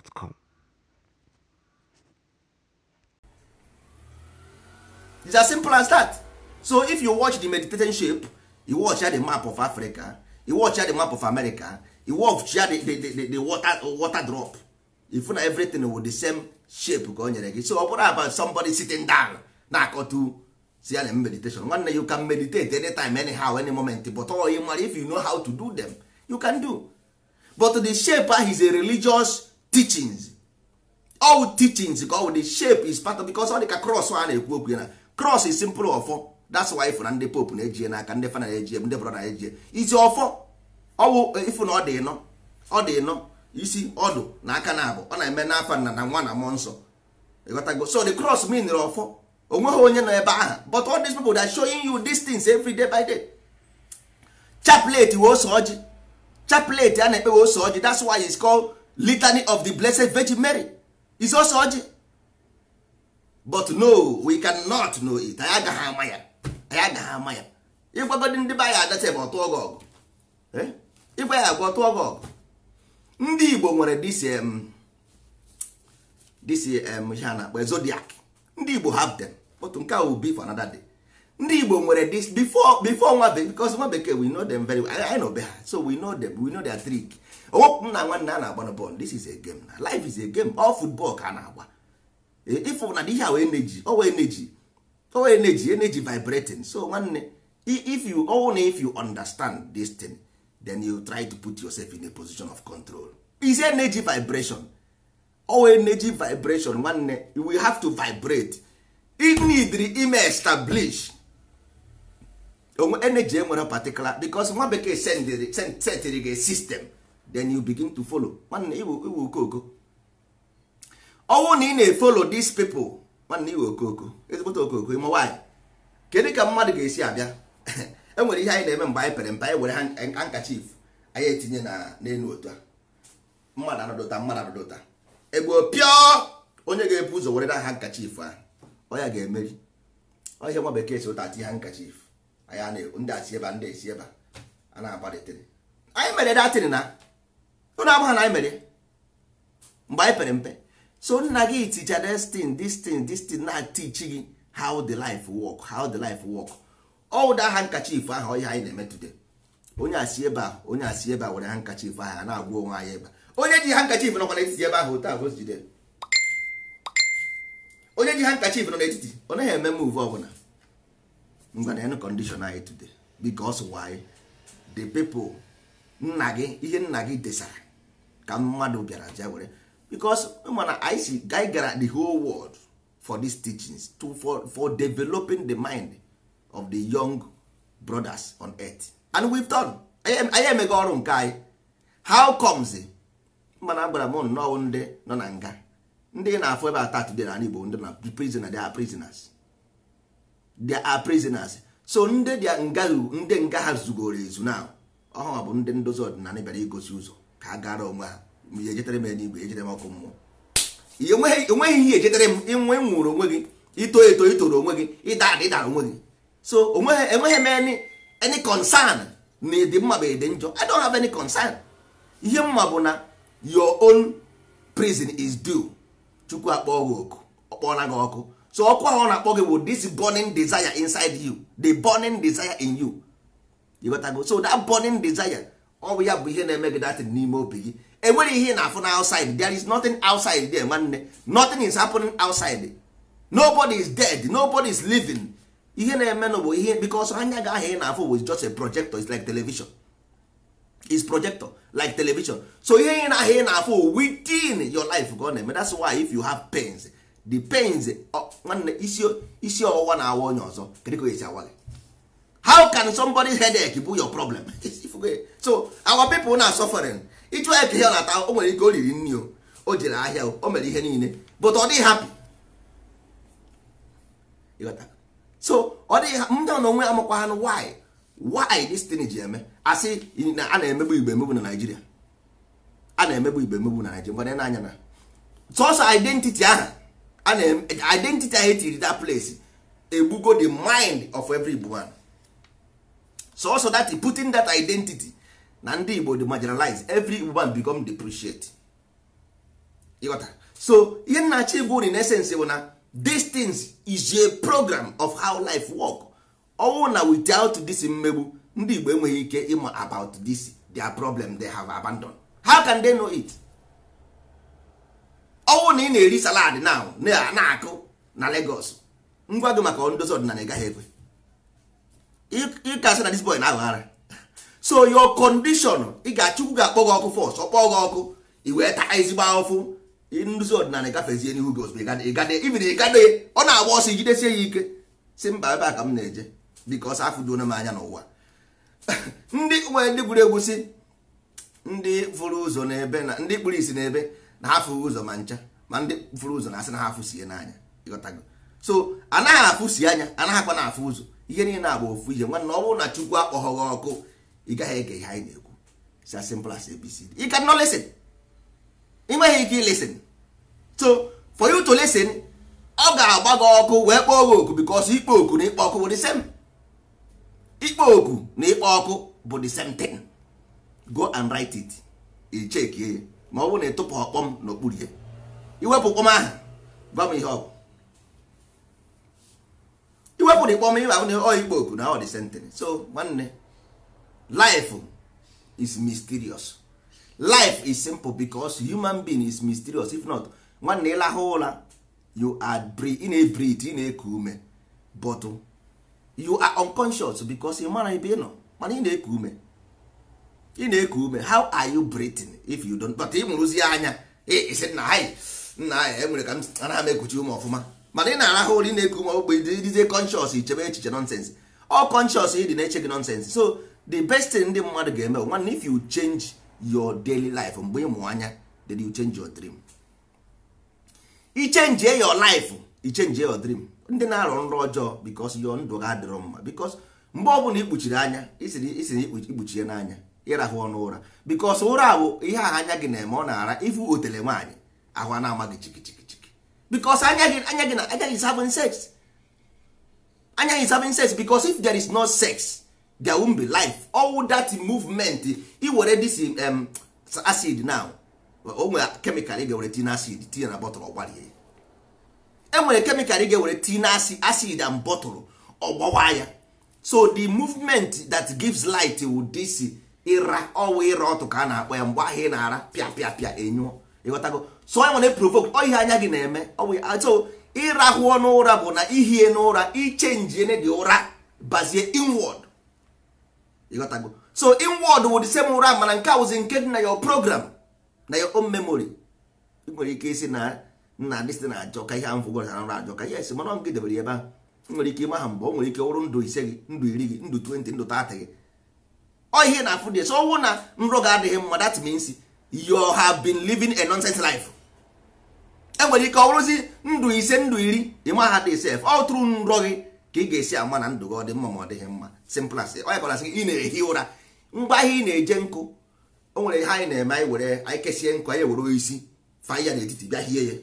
gmail.com. It's as simple as that. So if you watch the meditation shape, you watch the map of Africa, you watch the map of America, you watch the, the, the, the water, water drop. If na everything with the same shape ka o nyere gị so ọ bụrụ about somebody sitting down na-akọtu si meditation nwanne you can meditate anytime anyhow any moment but all you mara if you know how to do them you can do but the shape is a religious teachings all teachings ka ọ the shape is part of because ọ dị ka cross a na-ekwu okwu na cross is simple ọfọ that's why ifụ na ndị pope na-eji n'aka ndị fa na-eji ndị brọ na-eji isi ọfọ ọwụ ifụ na ọ dị ịnọ ọ dị ịnọ isi ọdụ na aka na abụ ọ na-eme na nna na nwa na mmụọ nsọ ịghọtago so the cross mean ọfọ onweghị onye nọ ebe aha but all these people are showing you these things every day by day chaplet wee ose ọjị chaplet a na-ekpe wee ose ọjị that's why it's called litany of the blessed virgin mary is also ọjị but no we cannot know it anyị agaghị ama ya anyị agaghị ama ya ịgwagodi ndị be anyị adata ebe ọtụ ọgụ ọgụ ịgwa ya agwa ọtụ ọgụ ọgụ ndị igbo nwere dcm dcm ha na-akpọ zodiac ndị igbo have dem otu nke a will be for anoda day ndị igbo nwere dis before before nwa bekee nwa we know them very well i know be ha so we know them we know their trick owepụ m na nwanne a na-agba na this is a game na life is a game all football ka a na-agba ịfụ e, na ihe a wee neji owe neji owe energy energy vibrating so nwanne if you ọwụ na if you understand this thing then you try to put yourself in a position of control is energy vibration owe energy vibration nwanne we have to vibrate it need ime establish onwe energy enwere particular because nwa bekee setịrị gị system. then you begin to follow nwanne iwu ọnwụ na ị na-efolo these people nwanne iwu okoko ezigbote okoko ịma nwaanyị kedu ka mmadụ ga-esi abịa enwere ihe anyị na-eme mgbe anyị pere mpe anyị were handkerchief anyị etinye na n'elu otu a mmadụ anọdụta mmadụ anọdụta egbo pịọ onye ga-ebu ụzọ were na handkerchief ahụ ọ ga-emeri ọhịa nwa bekee si ụta ati handkerchief anyị ndị a si ebe ndị esi ebe a na-agbalịtịrị anyị mere datịrị na ụnụ amaghị na anyị mere mgbe anyị pere mpe so nna gị ticha destin destin destin na tichi gị how the life work how the life work ọwụda aha nkachif ahụ ihe anyị na-eme today onye asị ebe a onye asị ebe a were ha nkachif ahụ a na-agwa onwe anyị ebe onye ji ha nkachif nọkwa n'etiti ebe ahụ taa bụ jide onye ji ha nkachif nọ n'etiti ọ naghị eme move ọbụla ngwa na enu kọndishọn anyị today because why the people nna gị ihe nna gị desara ka mmadụ bịara ja were because mana anyị si gara the whole world for these teachings to, for, for developing the mind of the young brothers on earth and we've done anyị emego ọrụ nke anyị how comes mana agbara m nnọọ ndị nọ na nga ndị na-afụ ebe ata today na igbo ndị na prisoner they are prisoners they are prisoners so ndị dị nga ndị nga ha zugoro ezu na ọhụrụ bụ ndị ndozi ọdịnala bịara igosi ụzọ ka ha gara onwe ha ya ejetere m eluigwe ejetere m ọkụ mmụọ onweghị ihe ejetere m inwe nwụrụ onwe gị ito eto itoro onwe gị ịda ada ịdara onwe gị so enweghị e m any concern na ịdị mma bụ ịdị njọ i don't have any concern ihe mma bụ na your own prison is due chukwu akpọọ gị oku ọkpọọla gị ọkụ so ọkụ ahụ ọ na-akpọ gị bụ this burning desire inside you the burning desire in you you got so that burning desire ọ bụ ya bụ ihe na-eme gị datin n'ime obi gị enwere ihe na-afụ na outside there is nothing outside there nwanne nothing is happening outside nobody is dead nobody is living ihe na-eme na ihe because anya gị ahụ ị na-afụ bụ just a projector it's like television is projector like television so ihe ị na-ahụ ị na-afụ within your life ka ọ na-eme that's why if you have pains the pains nwanne isi ọwụwa na-awa onye ọzọ kedu ka esi awa gị how can somebody's headache be your problem so our people na suffering ịchụ eke hel ata o nwere ike o riri nri o o jere ahịa o mere ihe niile but ọ dịghị happy so ọ dịghị ndị ọ na onwe why why this thing ji eme asị na a na-emegbu igbe emegbu na naijiria a na-emegbu igbe emegbu na Naịjirịa na n'anya na sọsọ identity ahụ a na identity ahụ etiri that place egbugo the mind of every one so also that putting that identity na ndị igbo dey marginalized every woman become depreciate ịghọta so ihe nnachi bụ in essence bụ na these is a program of how life work ọnwụ na without this mmegbu ndị igbo enweghị ike ịma about this their problem they have abandoned how can they know it ọnwụ na ị na-eri salad now na-akụ na Lagos ngwa gị maka ndozi ọdịnala ị gaghị ekwe ị na disbọy boy na aghara so your condition ị ga-achukwu ga-akpọ gị ọkụ fọs ọkpọ gị ọkụ i wee taa ezigbo ahụfụ nduzi ọdịnala gafezie n'ihu gị ozugbo ibiri ịgade ọ na-agba ọsọ ijidesie ya ike si mba ebe a ka m na-eje biko ọsọ afụjuona m anya n'ụwa ndị nwere ndị gwuru egwu ndị fụrụ ụzọ n'ebe na ndị kpụrụ isi n'ebe na ha fụrụ ụzọ ma ncha ma ndị fụrụ ụzọ na-asị na ha afụsie n'anya ịghọtago so anaghị afụsi anya anaghịkwa na-afụ ụzọ ihe niile agba ofu ihe nwanne ọ bụrụ na chukwu akpọghọ gị ọkụ ị gaghị ege ihe anyị na-ekwu it's as you ị nweghị ike listen so for you to listen ọ ga-agba gị ọkụ wee kpọọ gị oku because ikpo oku na ikpo ọkụ bụ the same ikpo oku na ikpo ọkụ bụ the same thing go and write it i chekie ma ọ bụrụ na ịtụpụ ọkpọm n'okpuru ihe iwepụ kpọm ahụ gwa m ihe ọ iwepụrụ ikpọm iwe ahụ na ọ ikpo oku na ọ dị sentence so nwanne life is mysterious life is simple because human being is mysterious if not nwanne ịlahụ ụra you are ị na-ebreathe ị na-eku ume but you are unconscious because ị mara ebe ị nọ mana ị na-eku ume ị na-eku ume how are you breathing if you don't but ị mụrụzie anya isi nna ha nna ha enwere ka m anaghị m ekuchi ume ọfụma mana ị na-arahụ ụra ị na-eku ume ogbe dizie conscious ichebe echiche nonsense all conscious ị dị na-eche gị nonsense so the best thing ndị mmadụ ga-eme nwanne if you change your daily life mgbe ị mụ anya then you change your dream i change your life i change your ndị na-arụ nrọ ọjọọ because your ndụ ga adịrọ mma because mgbe ọ bụla ikpuchiri anya isiri ikpuchi ya n'anya ịrahụ ọnụ ụra because ụra bụ ihe ahụ anya gị na-eme ọ na-ara ifu otele nwaanyị ahụ a na-amaghị chikichi because anya gị anya gị na anya is having sex anya is having sex because if there is no sex there won't be life all that movement iwere this um, acid now o nwere kemikal ị ga-ewere tin acid tinye na bọtụlụ ọgbarie enwere nwere kemikal ị ga-ewere tin acid and bọtụlụ ọgbawa ya so the movement that gives light will this ịra ọwụ ịra ọtụ ka a na-akpọ ya mgbe ahụ ị na-ara pịa pịa pịa enyụọ ịghọtago so anyị nwere provoke ọ ihe anya gị na-eme ọ bụ atụ ah, ịrahụ ọnụ ụra bụ na ihie n'ụra ene dị ụra bazie inward ịghọtago so inward wụ the ụra mana nke awụzi nke dị na your program na your own memory ị nwere ike isi na nna dịsị na ajọ ka ihe ahụ fụgoro na ụra ajọ ka ihe yes mana ọ nke debere ebe ahụ nwere ike ịma ha mgbe ọ nwere ike ọrụ ndụ ise gị ndụ iri gị ndụ 20 ndụ 30 gị ọ ihe na-afụ dị so ọnwụ na nrọ ga-adịghị mma that you have been living a nonsense life enwere ike ọ bụrụzi ndụ ise ndụ iri ịma aha dị sef ọ tụrụ nrọ gị ka ị ga-esi ama na ndụ gị ọ dị mma ma ọ dịghị mma simplas onye kọrasị sị ị na-ehi ụra ngwa ahịa ị na-eje nkụ o nwere ihe anyị na-eme anyị were anyị kesie nkụ anyị were isi fa ya n'etiti bịa hie ya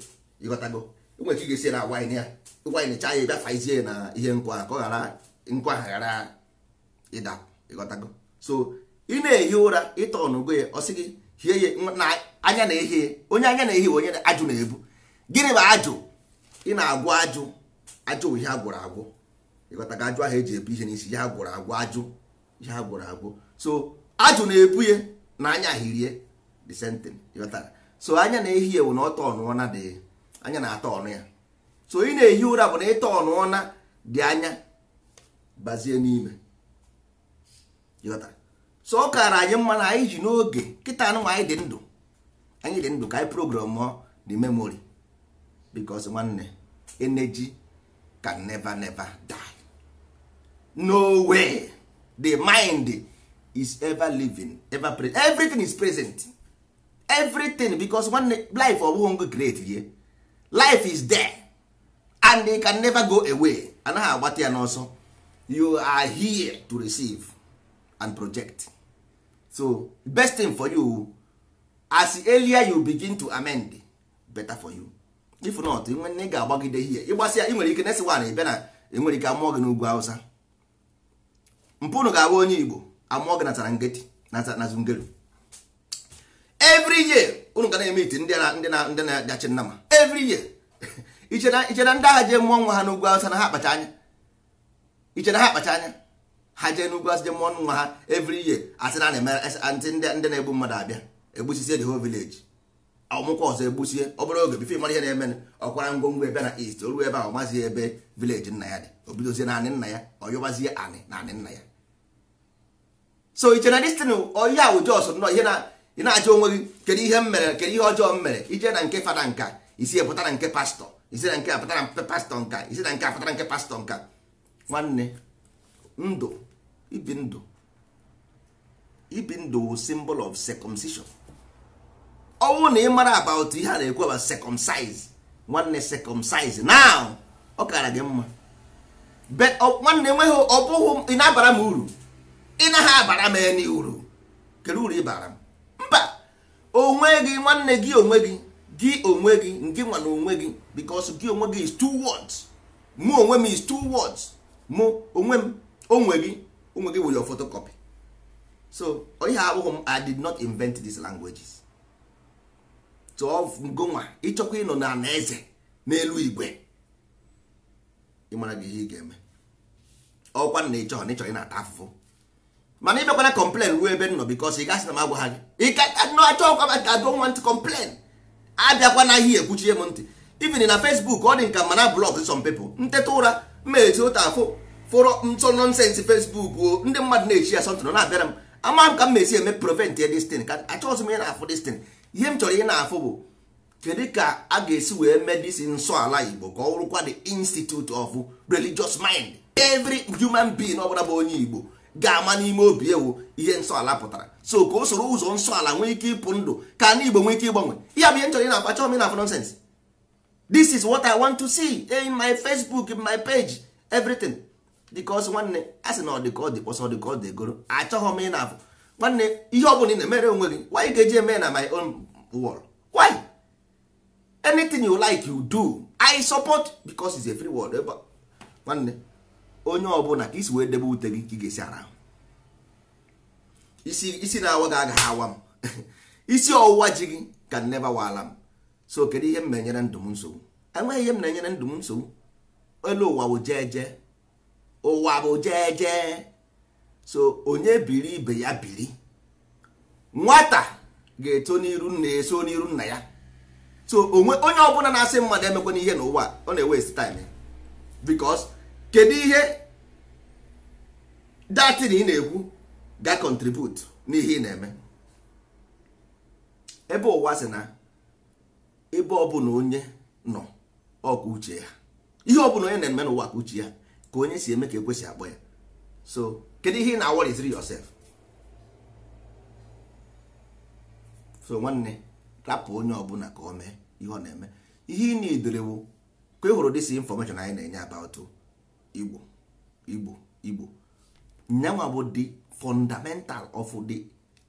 ịghọtago nwere ka ị ga-esi na agwa anyị ya ịgwa anyị necha ya bịa faizie na ihe nkụ ahụ ka ọ ghara nkụ ahụ ghara ịda ịghọtago so ị na-ehi ụra ịtọ ọnụgo ya ọ sị gị hie na anya na ehie onye anya na ehie onye ajụ na-ebu gịnị bụ ajụ ị na-agwụ ajụ ajụ bụ ihe a gwụrụ agwụ ịghọtaga ajụ ahụ eji ebu ihe n'isi ya gwụrụ agwụ ajụ ihe a gwụrụ agwụ so ajụ na-ebu ya na anya hirie the same thing ịghọtara so anya na ehie ewu na ọtọ ọnụọna dị anya na-atọ ọnụ ya so ị na-ehi ụra bụ na ịtọ ọnụọna dị anya gbazie n'ime ịghọtara so ọ kaara anyị mma na anyị ji n'oge kịta anụnwa anyị dị ndụ anyị dị ndụ ka anyị program the memory because nwanne energy can never never die no way the mind is ever living ever present everything is present everything because nwanne life ọbụghị ngo create ye life is there and it can never go away anaghị agbata ya n'ọsọ you are here to receive and project so best thing for you as earlier you begin to amend better for you if not nwanne ga-agbagide ihe ịgbasịa ị nwere ike nesi nwaanyị ịbịa na enwere ike amụọ gị n'ugwu awụsa mpụnụ ga-abụ onye igbo amụọ gị na tarangeti na zungeru every year unu ga na-eme iti ndị ndị na-agachi nna ma every year iche na ndị agha jee mụọ nwa ha n'ugwu awụsa na ha akpacha anya iche ha akpacha anya ha jee n'ugwu asị jee mụọ nwa ha every year asị na ndị ndị na-egbu mmadụ abịa egbusisie the whole village ọmụkwa ọzọ egbusie ọ bụrụ oge bifo mara ihe na-eme ọkwara ngwongwo ebe na east oru ebe ahụ mazi ebe village nna ya dị obidozie naanị nna ya ọyọbazie anị naanị nna ya so iche na destin oyi ahụ jos nọ ihe na ị achọ onwe gị kedu ihe m mere kedu ihe ọjọọ m mere ije na nke fada nka isi pụta na nke pastọ isi na nke apụta na pastọ nka isi na nke apụta na nke pastọ nka nwanne ndụ ibi ndụ ibi ndụ wụ symbol of circumcision ọnwụ na ị mara about ihe a na-ekwu about circumcise nwanne circumcise now ọ kara gị mma nwanne enweghị ọ bụghị ị na-abara m uru ị naghị abara m enyi uru kedu uru ị bara m mba onwe gị nwanne gị onwe gị gị onwe gị nke nwa na onwe gị because gị onwe gị is two words mụ onwe m is two words mụ onwe m onwe gị ụmụ gị were photocopy so ihe abụghị m i did not invent these languages tụọ ngonwa ịchọkwa ịnọ na eze n'elu igwe ịmara gị ihe ị ga-eme ọkwa na ịchọ na ịchọ ị na-ata afụfụ mana ị ịbịakwana complain ruo ebe nọ bikos ị gasị na m agwa ha gị ịkachọkwa I don't want to complain abịakwa na ihe ekwuchie m ntị even na Facebook ọ dị nka mana blọk some nteta ụra mmeeti ụta afụ fụrọ ntọ nọnsensị fesbuk ndị mmadụ na-echi ya sọntụ nọ na-abịara m ama m ka m na-esi eme prevent ya destin ka achọghịzi m ihe na-afụ destin ihe m chọrọ ihe na-afụ bụ kedu ka a ga-esi wee mee disi nsọ ala igbo ka ọ bụrụkwa the institute of religious mind every human being ọ bụla bụ onye igbo ga-ama n'ime obi ewu ihe nsọ ala pụtara so ka o soro ụzọ nsọ ala nwee ike ịpụ ndụ ka ndị igbo nwee ike ịgbanwe ihe bụ ihe nchọrọ chọrọ na-afụ achọghị m na-afụ this is what i want to see in my facebook in my page everything dịkọs nwanne a sị na ọ dị ka ọ dịkpọsọ ọ dị ka ọ dị egoro achọghị m ị na-afụ nwanne ihe ọ bụla ị na-emere onwe gị why ga-eji eme na my own world why anything you like you do i support because it's a free world ebe nwanne onye ọbụla ka isi wee debe ute gị ka ị ga-esi ara isi isi na-awa gị agaghị awa m isi ọwụwa ji gị ka nneba waala m so kedu ihe m na-enyere ndụ m nsogbu enweghị ihe m na-enyere ndụ m nsogbu elu ụwa wụ jee jee ụwa bụ jeje so onye biri ibe ya biri nwata ga-eto n'iru nna eso n'iru nna ya so onwe onye ọbụla na-asị mmadụ emekwana ihe n'ụwa ọ na-ewest time because kedu ihe datin ị na-ekwu ga contribute n'ihe ị na-eme ebe ụwa si na ebe ọbụla onye nọ ọkụ uche ya ihe ọbụla onye na-eme n'ụwa ka uche ya ka onye si eme ka ekwesị akpọ ya so kedu ihe ị na-awọriziri yosef. so nwanne rapụ onye ọbụla ka o mee ihe ọ na-eme ihe ị na-edorewo ka ị hụrụ dịsi infọmeshọn anyị na-enye about igbo igbo igbo nyanwa bụ the fundamental of the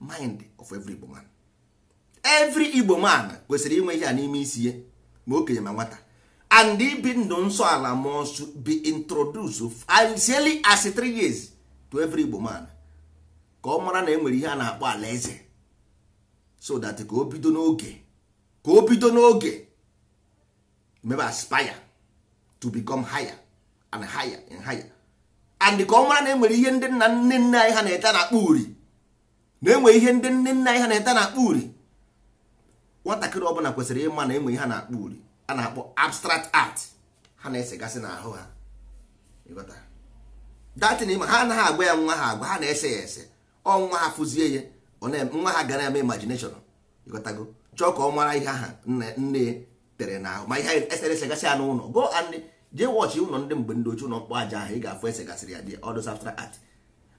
mind of every igbo man every igbo man kwesịrị inwe ihe a n'ime isi ye ma okenye ma nwata and ibi ndụ nsọ ala must be introduce sincerely as three years to every Igbo man ka ọ mara na enwere ihe a na-akpọ alaeze so that ka o bido n'oge ka o bido n'oge maybe aspire to become higher and higher and higher and ka ọ mara na enwere ihe ndị nna nne nna anyị ha na-eta na-akpọ uri na enwe ihe ndị nne nna anyị ha na-eta na-akpọ uri nwatakịrị ọbụla kwesịrị ịma na enwe ihe ha na-akpọ uri a na-akpọ abstract art ha na-esegasị n'ahụ ha datin ma ha anaghị agwa ya nwa ha agwa ha na-ese ya ese ọ nwa ha fụzie ya nwa ha gara eme imagination ịghọtago chọọ ka ọ mara ihe aha nne nne tere n'ahụ ma ihe esere eseresegasị ya n'ụlọ go and jee wọchị ụlọ ndị mgbe ndị ochie ụlọ mkpọ aja ahụ ị ga-afụ esegasịrị ya dị ọdụ abstract art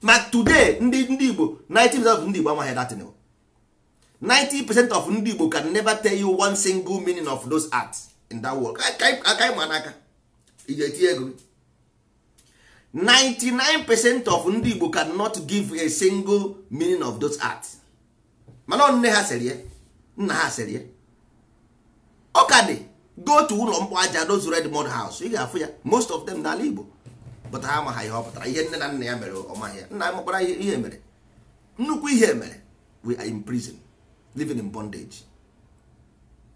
ma today ndị ndị igbo 90% of ndị igbo amaghị datin 90% of ndị igbo can never tell you one single meaning of those arts in that world aka ịma n'aka iji etinye ego 99 percent of ndị Igbo cannot give a single meaning of those art mana nne ha sịrị ya nna ha sịrị ya ọ ka dị go to ụlọ mkpọ aja those red mud house ị ga-afụ ya most of them n'ala Igbo pụta ha amaghị ihe ọ pụtara ihe nne na nna ya mere ọmaghị ya nna ya ihe mere nnukwu ihe mere we are in prison living in bondage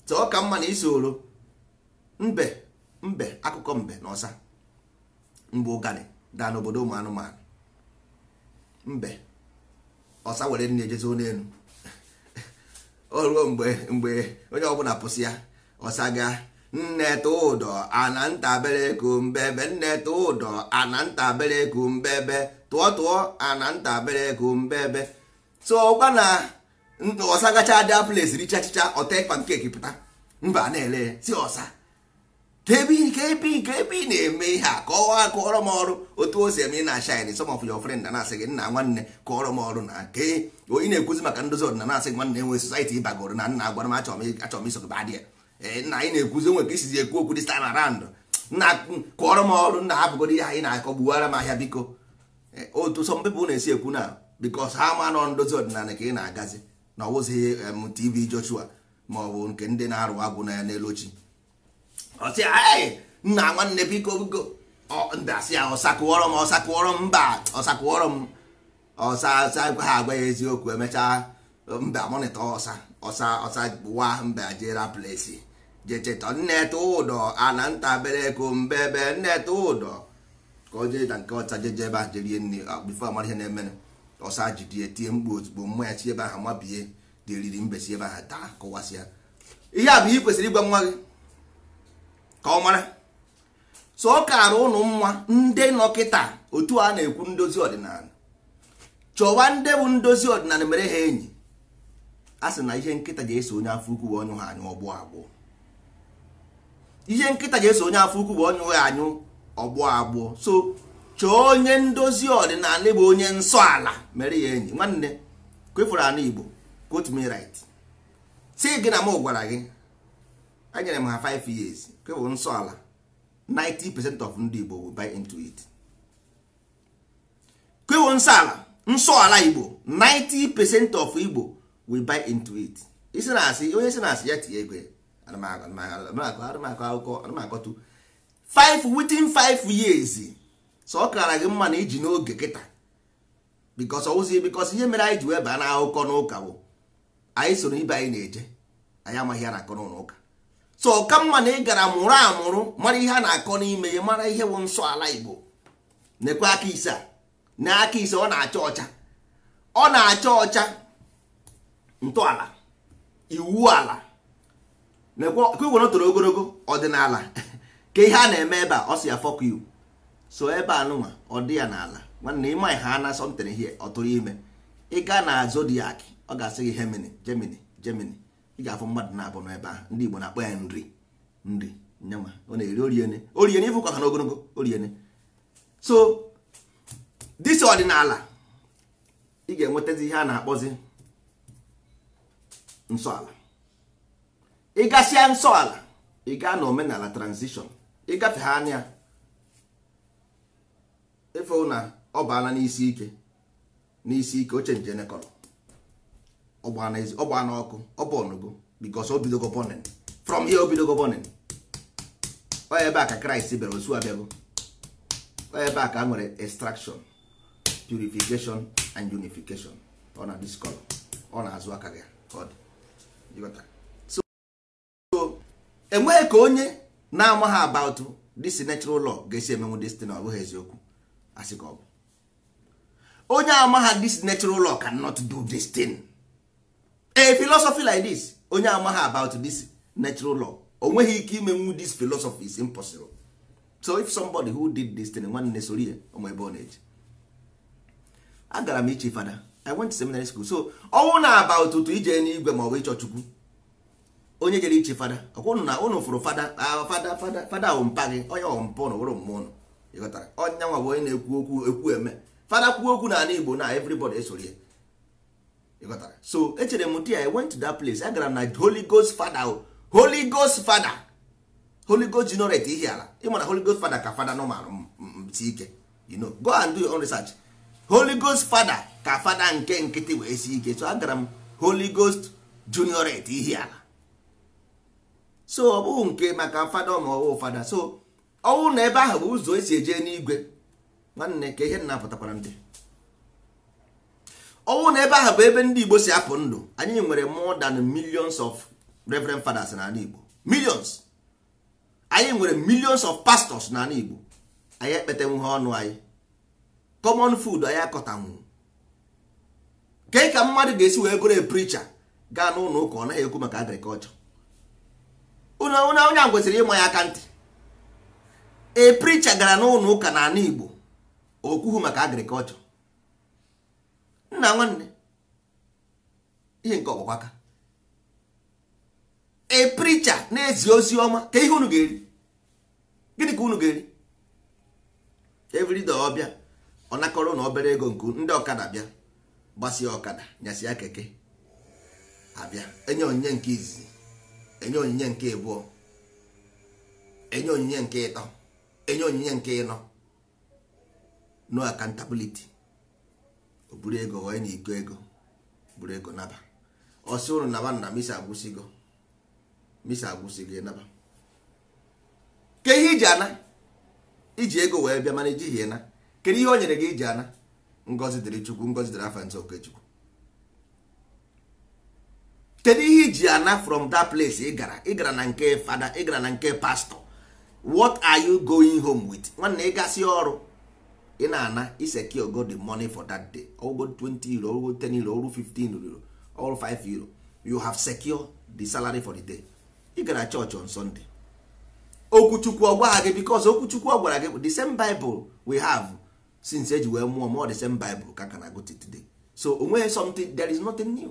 so ọ ka mma na oro mbe mbe akụkọ mbe na ọsa mgbe ụgani daa n'obodo ụmụ anụmanụ mbe ọsa were nne jezi n'elu o ruo mgbe mgbe onye ọbụla pụsị ya ọsa gaa nne tụ ụdọ ana ntabere kumbebe nne tụ ụdọ ana ntabere kumbebe tụọ tụọ ana ntabere kumbebe so ọgwa na ọsa gacha ada place richa achịcha ọta pankeki pụta mba na-ele si ọsa ka ebe ka ebe ị na-eme ihe a kọwaa kọọrọ m ọrụ otu o si eme na-ashin some of your friend na-asị gị nna nwanne kọọrọ m ọrụ na ke ị na-ekwuzi maka ndozi ọdịnala asị nwanne enwe society ịbagoro na nna agwara m achọrọ m iso badị ya eh, nna anyị na-ekwuzi onwe ka isizi ekwu okwu dị stand nna kọọrọ m ọrụ nna hapụgoro ihe anyị na-akọ gbuwara m ahịa biko eh, otu some people na-esi ekwu na because ha ma nọ ndozi ọdịnala ka ị na-agazi na ọwụzighị m tv Joshua ma ọ bụ nke ndị na-arụ agwụ na ya n'elu ochi ọsị anyị nna nwanne biko biko ndasị ya ah, ọsakụọrọ m ọsakụọrọ m mba ọsakụọrọ m ọsa gwa ha agwa ya eziokwu emechaa mba mọnịta ọsa ọsa ọsa wa mba jera plesi jecheta nneta ụdọ ana mbe mbebe nneta ụdọ ka o jee na nke ọcha jeje ebe ahụ jerie nri bifo amara ihe na-emenụ ọsa jidie tie mgbu ozugbo mmanya chi ebe ahụ mabie dị eriri mbesi ebe ahụ taa ya. ihe a bụ ihe kwesịrị ịgwa nwa gị ka ọ mara so ọ kaara ụnụ mma ndị nọkịta otu a na-ekwu ndozi ọdịnala chọwa ndị bụ ndozi ọdịnala mere ha enyi a sị na ihe nkịta ga eso onye afọ ukwu bụ ọnyụ ha anyụ ọgbụ agbụ ihe nkịta ga eso onye afọ ukwu wee ha anyụ ọgbụ agbụ so chọọ onye ndozi ọdịnala bụ onye nsọ ala mere ya enyi nwanne kwefuru anụ igbo quote me si gị na m gwara gị anyere m ha 5 years nke bụ nsọ ala 90% of ndị Igbo will buy into it kwewo nsọ ala nsọ ala Igbo 90% of Igbo will buy into it isi na asị onye si na asị ya tinye ego anụmakọtụ 5 within 5 years so ọ kara gị mma na iji n'oge kịta bikos ozi bikos ihe mere anyị ji wee baa n'akụkọ n'ụka bụ anyị soro ibe anyị na-eje anyị amaghị ya na akọ so ka mma na ị gara mụrụ amụrụ mara ihe a na-akọ n'ime ya mara ihe bụ nsọ ala igbo nekwe aka ise na aka ise ọ na-acha ọcha ọ na-acha ọcha ntọala iwu ala ka iwere toro ogologo ọdịnala ka ihe a na-eme ebe a ọ si ya fọkụ iwu so ebe a nụnwa ọ dị ya n'ala nwanne ịma ha na asọmtere ihe tụrụ ime ịga na zodiac ọ ga-asị gị hemini gemini gemini ị ga-afụ mmadụ na-abụ n'ebe a ndị Igbo na-akpọ ya nri nri nyama ọ na-eri oriene oriene ịfụ ka ha n'ogologo oriene so disi ọdịnala ị ga-enwetazi ihe a na-akpọzi nsọala ịgasịa nsọala ị gaa na omenala transition ịgafe ha anya efe na ọ baala n'isi ike n'isi ike oche njenekọrọ ọgba n'ọkụ ọbọnụgo because obidogo burning from here obidogo burning onye ebe a ka kraịst bịara osu abịago onye ebe a ka a nwere extraction purification and unification ọ na discolor ọ na-azụ aka gị so enweghị ka onye na-amaghị about this natural law ga-esi emenwu destin ọ bụghị eziokwu asị ka ọ bụ onye amaghị this natural law cannot do this thing a philosophy like this onye amaghị about this natural law o nweghị ike imenwu this philosophy is impossible so if somebody who did this thing nwanne soro ya ọma ebe ọ na-eji agara m iche fada i went to seminary school so ọnwụ na about ụtụ ije n'igwe maọbụ ọ ịchọ chukwu onye jere iche fada ọkwụnụ na ụnụ fụrụ fada fada fada fada ahụ mpa gị onye ọmpa ụnụ wụrụ mmụọ ụnụ ịghọtara onye nwa bụ onye na-ekwu okwu ekwu eme fada kwuo okwu n'ala igbo na everybody esoro ya ịghọtara so echere m di i went to that place agara m na holy ghost fada oh. holy ghost fada holy ghost generate ihe ala ịma na holy ghost fada ka fada nọmal ti ike you know go and do your own research holy ghost fada ka fada nke nkịtị wee si ike so agara m holy ghost generate ihe ala so ọ bụghị nke maka fada ma ọwụ fada so ọnwụ na ebe ahụ bụ ụzọ esi eje n'igwe nwanne ka ihe nna pụtakwara ndị ọnwụ na ebe ahụ bụ ebe ndị igbo si apụ ndụ anyị nwere more than millions of reverend fathers n'ala igbo millions anyị nwere millions of pastors n'ala igbo anyị ekpetenwuhe ọnụ anyị common food anyị akọtanwu ke ka mmadụ ga-esi wee gụrụ preacher gaa n'ụlọ ụka ọ naghị ekwu maka agriculture onye a gwesịrị ịma ya aka ntị e preacher gara n'ụlọ ụka n'ala igbo okwuhu maka agriculture nna nwanne ihe nke ọgbakwa aka a na-ezi ozi ọma ka ihe unu ga-eri gịnị ka unu ga-eri everyday ọbịa ọ nakọrọ na obere ego nke ndị ọkada bịa gbasia ọkada nyasịa keke abịa enye onyinye nke izizi enye onyinye nke abụọ enye onyinye nke ịtọ enye onyinye nke ịnọ no accountability buru ego ghọọ na ego ego buru ego naba ọsị ụrụ naba na misi agwụsịgo misi agwụsịgo ịnaba ke ihe iji ana iji ego wee bịa mana ejighị na kedu ihe o nyere gị iji ana ngọzi dịrị chukwu ngọzi dịrị afa nze okechukwu kedu ihe iji ana from that place ị gara ị gara na nke fada ị gara na nke pastọ wat are you going home with nwanne ị ọrụ ị na-ana iseki go the money for that day ogo 20 euro ogo 10 euro ogo 15 euro or 5 euro you have secure the salary for the day ị gara church on sunday okwuchukwu ọ gị because okwuchukwu ọ gwara gị the same bible we have since eji wee mụọ mụọ the same bible ka kana gote today so onweghị something there is nothing new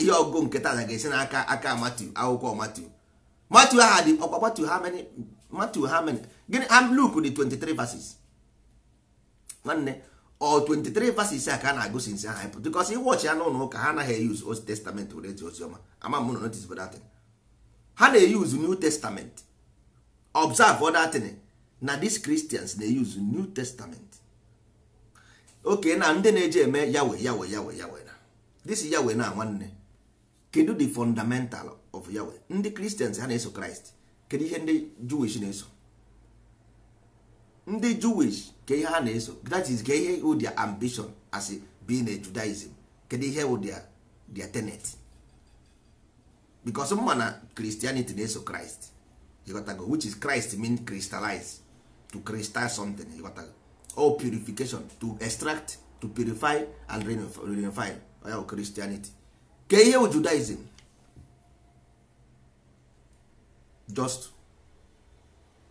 ihe ọgụgụ nke taa ga-esi n'aka aka Matthew akwụkwọ Matthew Matthew ha dị ọkwa Matthew ha many Matthew ha many gịnị Luke dị 23 verses nwanne ọ 23 verses a ka a na-agụ sinsi aha ịpụ because iwọchị ya n'ụlọ ụka ha anaghị eyuz old testament were ozi ọma ama m na notice for that ha na-eyuz new testament observe other na dis cristians na-eyuz new testament oke na ndị na-eji eme yawe yawe yawe yawe na this yawe na nwanne kedu the fundamental of yawe ndị christians ha na-eso kraịst kedu ihe ndị jewish na-eso ndị jewish ka ihe ha na-eso that is ka ihe wụ their ambition as being a judaism kedu ihe wụ their their tenet because mma na christianity na-eso christ ịghọtago which is christ mean crystallize to crystal something ịghọtago or purification to extract to purify and renify oya wụ christianity ka ihe wụ judaism just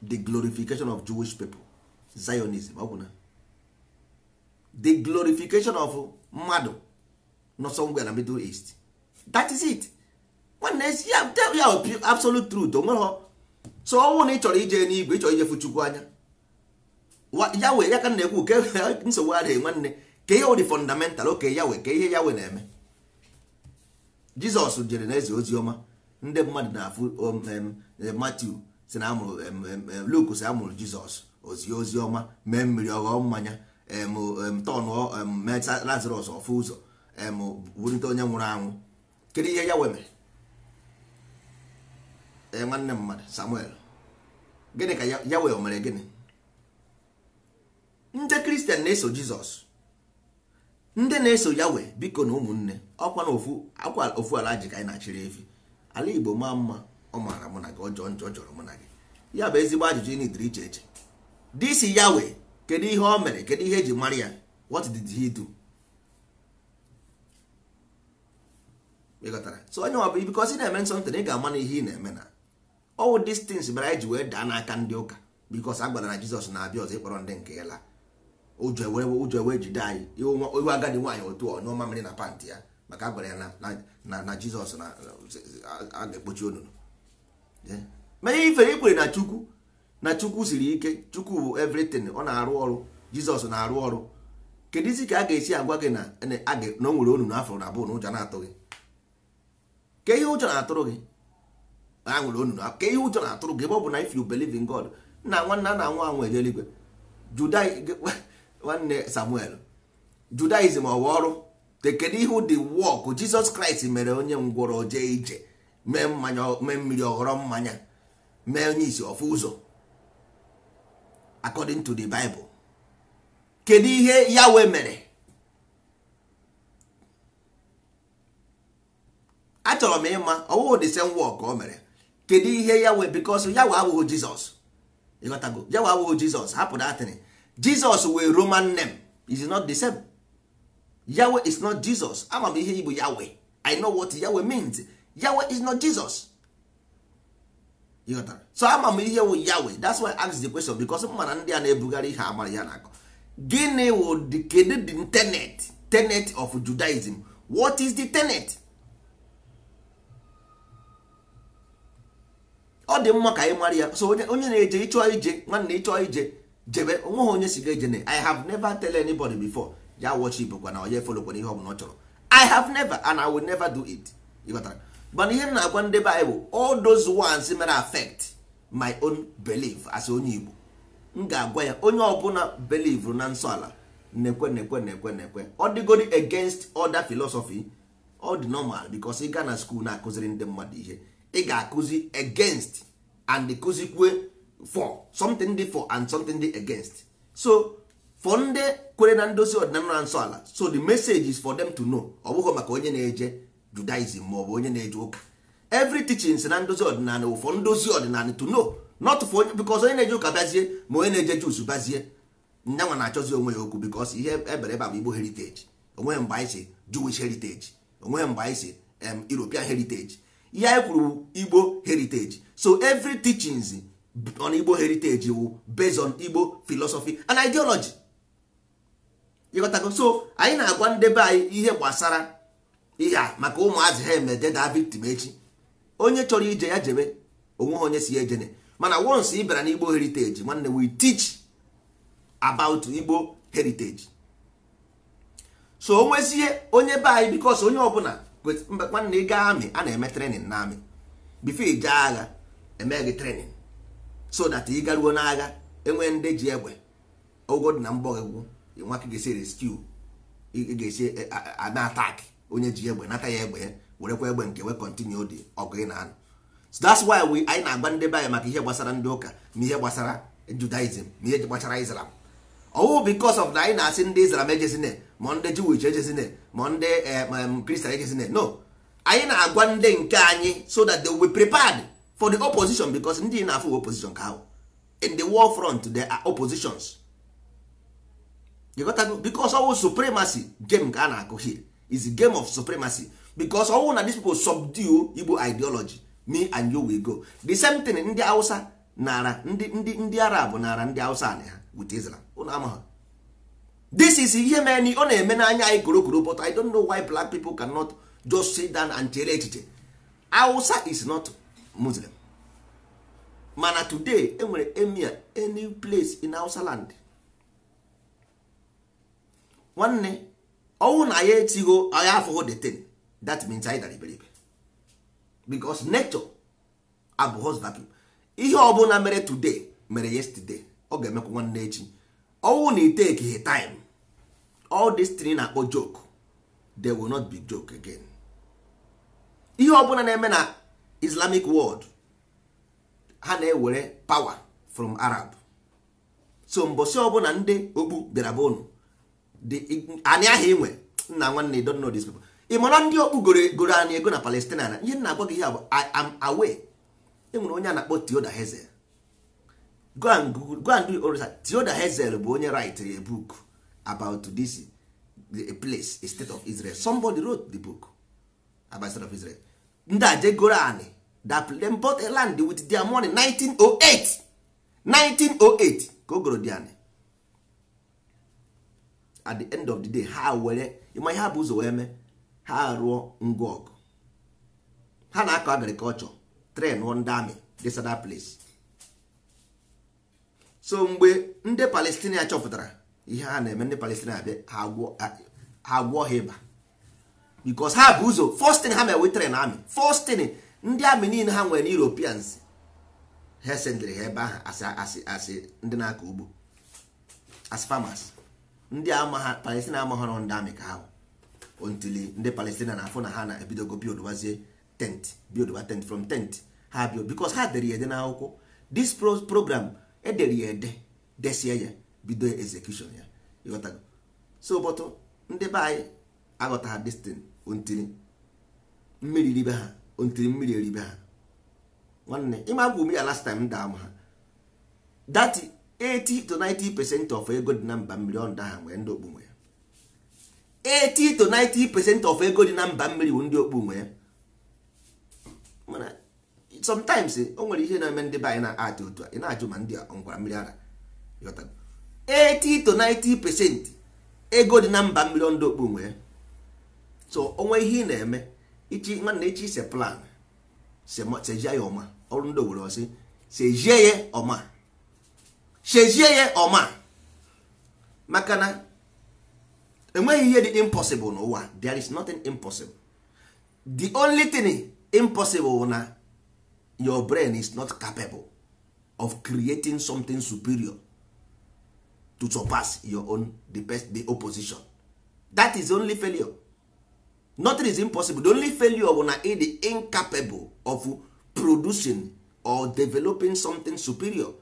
the glorification of jewish people zionism ọ bụ na the glorification of mmadụ nọ na middle east that is it nwanne ya absolute truth o nweghị so ọnwụ na ị chọrọ ije n'igwe ị chọrọ ijefu chukwu anya ya wee ya ka na-ekwu ke nsogbu adịghị nwanne ka ihe ụdị fọndamental oke ya wee ka ihe ya wee na-eme jizọs jere na eze ozi ọma ndị mmadụ na-afụ um, um, matu si na amụrụ um, luk si amụrụ jizọs ozie ozi ọma mee mmiri ọghọọ mmanya tọnụ meta lazarus ọfụ ụzọ wurite onye nwụrụ anwụ kedu ihe ya e nwanne mmadụ samuel gịnị ka ya wee mere gịnị ndị kristian na-eso jizọs ndị na-eso yawe biko na ụmụnne ọkwa na ofu ala ji ka anyị na-achịrị efi ala igbo maa mma ọ maara mụ na gị ọjọọ njọ ọ jọrọ mụ na gị ya bụ ezigbo ajụjụ ị nidiri iche iche ya Yahweh kedu ihe o mere kedu ihe eji mara ya what did he do so onye ọ bụ because ị na-eme na ị ga-ama na ihe ị na-eme na all these things mere anyị ji wee daa n'aka ndị ụka because a gwara na Jizọs na-abịa ọzọ ịkpọrọ ndị nke ya la ụjọ ewe e jide anyị iwe agadi nwaanyị otu ọ nyụọ mamịrị na pantị ya maka a ya na Jizọs a ga-ekpochi onunu mana ife ifere ikwere na Chukwu na chukwu siri ike chukwu bụ everything ọ na-arụ ọrụ jizọs na-arụ ọrụ kedu isi ka a ga-esi agwa gị na o nwere onu na afọ na abụọ na ụjọ na-atụ gị ka ihe ụjọ na-atụrụ gị a nwere onu na ka ihe ụjọ na-atụrụ gị ebe ọ bụ na if you believe in God nna nwanna na nwa anwụ eje eluigwe nwanne Samuel Judaism ọwa ọrụ te kedu ihe dị wọk Jizọs Kraịst mere onye ngwọrọ jee ije mee mmiri ọghọrọ mmanya mee onye isi ọfụ ụzọ according to the bible kedu ihe yawe mere achọrọ m ịma ọwụwụ the same work o mere kedu ihe yawe because yawe abụghị jizọs ịghọtago yawe abụghị jizọs hapụ datịrị jizọs wee roman name is not the same yawe is not jesus ama m ihe igbo yawe i know what yawe means yawe is not jesus ịghọtara so ama m ihe wụ ya wee that's why I ask the question because m mana ndị a na-ebugharị ihe amara ya na-akọ gịnị wụ kedu the tenet tenet of Judaism what is the tenet ọ dị mma ka anyị mara ya so onye na-eje ịchọ ije nwanne ịchọ ije jebe onweghị onye si ga-eje na I have never tell anybody before ya watch Igbo kwa na onye ihe ọ bụla ọ chọrọ I have never and I will never do it ịghọtara mana ihe m na-agwa ndị baịbụl all those ones mere affect my own belief as onye igbo m ga-agwa ya onye ọbụla belief na nsọ ala na-ekwe na-ekwe na-ekwe na-ekwe ọ dịgodi against other philosophy ọ dị normal because ị na school na-akụziri ndị mmadụ ihe ị ga-akụzi against and kụzikwe for something dị for and something dị against so for ndị kwere na ndozi ọdịnala na nsọ ala so the message is for them to know ọ bụghị maka onye na-eje judaism maọbụ onye na-eje ụka every teachings na ndozi ọdịnala ụfọ ndozi ọdịnala to no not for onye because onye na-eje ụka bazie ma onye na-eje jus bazie nyanwa na-achọzi onwe ya okwu because ihe ebere ebe bụ igbo heritage onweghị mgbe anyị si juwis heritage onweghị mgbe anyị si european heritage ihe anyị kwuru igbo heritage so every teachings on igbo heritage wụ based on igbo philosophy and ideology ịghọtago so anyị na-agwa ndebe anyị ihe gbasara ihe a maka ụmụazị ha eme jeda victim echi onye chọrọ ije ya jebe ha onye si ejene mana once ị bịara n'igbo heritage nwanne we teach about igbo heritage so o nwezie onye be anyị bikos onye ọbụla mgbe nwanne ị gaa amị a na-eme trenin na amị bifo ije agha eme gị trenin so that ị garuo n'agha enwe ndị ji egbe ogo dị na mgbọgwụ nwa ka ga-esi reskiu ị ga-esi onye ji egbe nata ya egbe ya werekwa egbe nke we kọntinyu dị ọgụ ị na-anụ so that's why we anyị na-agba ndị anyị maka ihe gbasara ndị ụka na ihe gbasara judaism na ihe gbasara islam ọwụ because of na anyị na-asị ndị islam ejezine ma ndị jewish ejezine ma ndị kristian eh, um, ejezine no anyị na-agwa ndị nke anyị so that they will prepared for the opposition because ndị na-afụ opposition ka ahụ in the war front there are oppositions because ọwụ supremacy game ka a na-akụ here is a game of supremacy because all na these people subdue igbo ideology me and you will go the same thing ndị hausa nara ndị ndị ndị arab nara ndị hausa na ha with israel ụnụ ha this is ihe mere ọ na-eme n'anya anyị korokoro but i don't know why black people cannot just sit down and chere echiche hausa is not muslim mana today enwere emir any place in hausa land nwanne ọnwụ na ya etigho ya afọghọ detain that means anyị dara iberibe because nature abụghọz vacuum ihe bụla mere today mere yesterday ọ ga-emekwa nwanne echi ọnwụ na iteki he time all this tin na-akpọ joke they will not be joke again ihe ọbụla na-eme na islamic world ha na-ewere power from arab so mbosi ọbụla ndị okpu bịara be unu anyị aha inwe nna nwanne I don't know this people ị mara ndị okpu goro anyị ego na palestina na ihe na-agwa gị ihe bụ am away enwere onye a na-akpọ Theodor Herzl go and orisa Theodor Herzl bụ onye write a book about this place a state of Israel somebody wrote the book about state of Israel ndị a jegoro anyị that them bought land with their money 1908 1908 ka o goro dị anyị at the end of the day ha were ịma ihe ha bụ ụzọ wee mee ha rụọ ngwa ọgụ ha na-akọ agrikọlchọ tren ndị amị this other place so mgbe ndị palestinia chọpụtara ihe ha na-eme ndị palestinia abịa ha gwọ ha ịba bikos ha bụ ụzọ fostin ha mewe tren amị fostin ndị amị niile ha nwere europeans ha esendịrị ha ebe ahụ asị asị asị ndị na-akọ ugbo as farmers ndị amaha palestina amaghọrọ ndị amị ka ahụ ontili ndị palestina na-afụ na ha na-ebidogo bildbazie tent bildba tent from tent ha bio bikos ha dere ya ede n'akwụkwọ this program edere ya ede desie ya bido execution ya ịghọtago so bọtụ ndị be anyị aghọta ha destin ontili mmiri ribe ha ontili mmiri eribe ha nwanne ịma m ya last time m daa ma ha dati 80 to 90 percent of ego dị na mba mmiri ọ ndị ahụ nwere ndị ya 80 to 90 percent of ego dị na mba mmiri bụ ndị okpu ya mana sometimes o nwere ihe na-eme ndị be na-atụ otu a ị na-ajụ ma ndị ngwara mmiri ara 80 to 90 percent ego dị na mba mmiri ọ so onwe ihe ị na-eme ichi ichi ise plan sejie ya ọma ọrụ ndị owere ọsị sejie ya ọma shezie ya ọma maka na enweghị ihe dị impossible n'ụwa there is nothing impossible the only thing impossible na your brain is not capable of creating something superior to surpass your own the best the opposition that is only failure nothing is impossible the only failure bụ na ị incapable of producing or developing something superior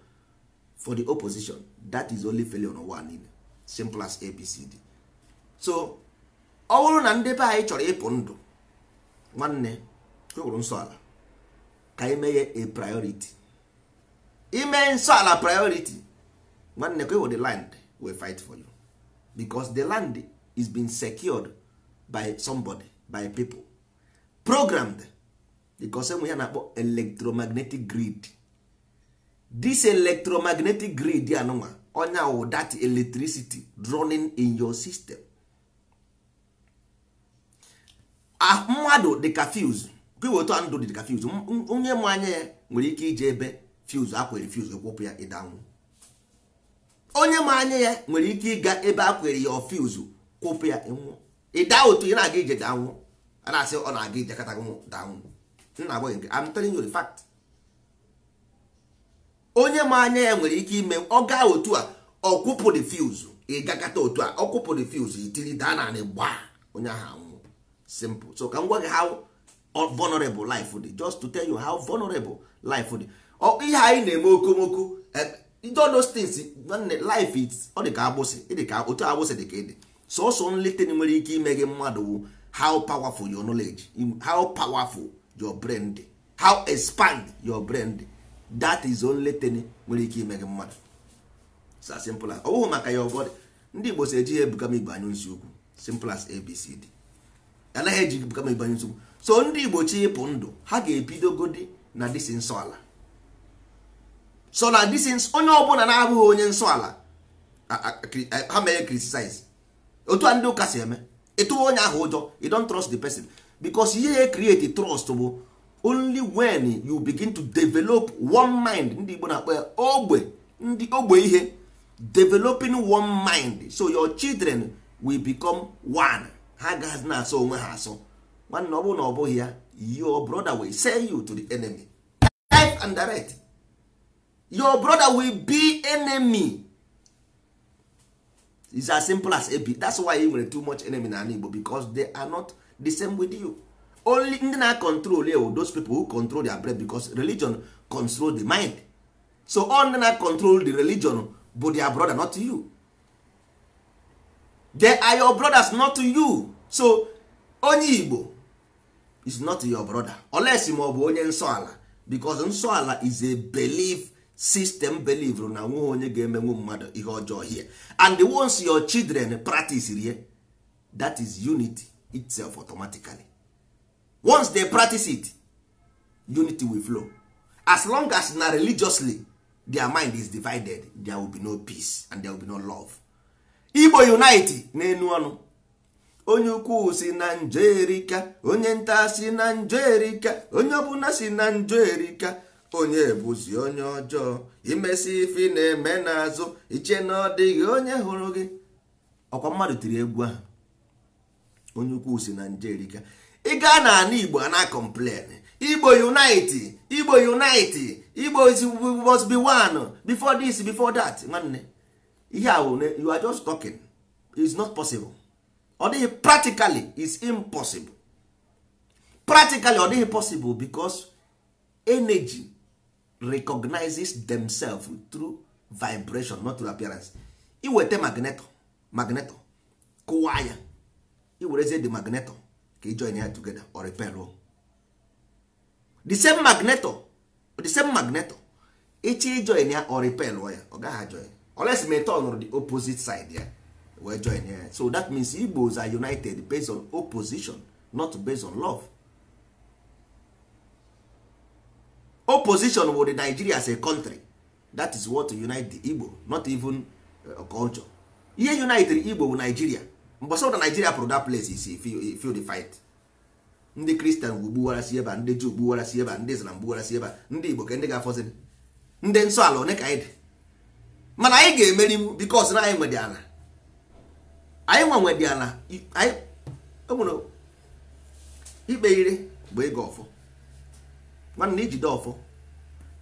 for the opposition that is only failure on one in simple as abcd so ọ bụrụ na ndị be anyị chọrọ ịpụ ndụ nwanne kwụrụ e nsọ ala ka imeghe a priority ime nsọ ala priority nwanne kwewo e the land we fight for you because the land is being secured by somebody by people programmed because enwe ya na-akpọ electromagnetic grid this electromagnetic grid anụnwa onya wụ that electricity running in your system mmadụ dịka fuse gwewetu ndụ dịka fuse onye ma anya ya nwere ike ije ebe fuse akwere fuse ekwepụ ya ịdanwụ onye ma anya ya nwere ike ịga ebe akwere ya fuse kwụpụ ya ịnwụ ịda otu ị na-aga ije danwụ a na-asị ọ na-aga ije kata danwụ nna agwaghị nke I'm telling you the fact onye ma anya ya nwere ike ime ọ gaa otu a ọkwụpụ refuse ịgakọta otu a ọkwụpụ refuse itiri daa na anị gbaa onye ahụ anwụ simple so ka m gwa gị how vulnerable life dị just to tell you how vulnerable life dị ihe anyị na-eme okomoko those things life is agbụsị dị ka otu agbụsị dị ka ịdị sọsọ nleten nwere ike ime gị mmadụ wụ how powerful your knowledge how powerful your brain dị how expand your brain dị that is only thing nwere ike ime gị mmadụ sa simple as ọ bụghị maka ya ọbọdị ndị igbo si eji ya ebuga m igbo anya nsi ukwu simple as abcd anaghị eji ebuga m igbo anya nsi ukwu so ndị igbo chi ịpụ ndụ ha ga-ebidogodi na disi nsọ ala so na disi onye ọbụla na-abụghị onye nsọ ala ha mere criticize otu a ndị ụka si eme ịtụwa onye ahụ ụjọ you don't trust the person because ihe ya create trust bụ only when you begin to develop one mind ndị Igbo na-akpọ ya ogbe ndị ogbe ihe developing one mind so your children will become one ha gaghị na-asọ onwe ha asọ nwanne ọ na ọ bụghị ya your brother will sell you to the enemy life and direct your brother will be enemy is as simple as ab that's why you nwere too much enemy na ala Igbo because they are not the same with you only ndị na control ewo oh, those people who control their breath because religion control the mind so all ndị na control the religion bụ their brother not you they are your brothers not you so onye Igbo is not your brother unless ma ọ bụ onye nsọ ala because nsọ ala is a belief system belief na nweghị onye ga-emenwu mmadụ ihe ọjọọ here and ones your children practice rie that is unity itself automatically once they practice it unity will flow as long as na religiously their mind is divided there will be no peace and there will be no love igbo unite n'enu ọnụ onye ukwu si na njọ erika onye nta si na njọ erika onye ọbụla si na njọ erika onye bụzi onye ọjọọ imesi ife na-eme na n'azụ iche na ọ dịghị onye hụrụ gị ọkwa mmadụ tiri egwu ahụ onye ukwu si na njọ erika ị gaa na ana igbo ana complain igbo unite igbo unite igbo is must be one before this before that nwanne ihe ahụ you are just talking is not possible ọ dịghị practically is impossible practically ọ dịghị possible because energy recognizes themselves through vibration not through appearance iweta magneto magneto kụwa ya iwerezie the magneto ka ijoin ya togeda or repel the same magneto the same magneto ichi ijoin e ya or repel ya ọ gaghị join unless ma turn on the opposite side ya eh? wee join ya so that means igbos are united based on opposition not based on love opposition with nigeria as a country that is what unite the igbo not even eh, culture ihe united igbo bụ nigeria mgbe sọ na Nigeria pụrụ that place isi feel the fight ndị Christian gbuwara si ebe ndị Juu gbuwara ebe a ndị Islam gbuwara ebe a ndị Igbo ka ndị ga-afọzi ndị nsọ ala one ka anyị dị mana anyị ga-emeri m because na anyị nwedị ala anyị nwa nwedị ala anyị enwere ikpe ire bụ ego ọfọ nwanne ijide ọfọ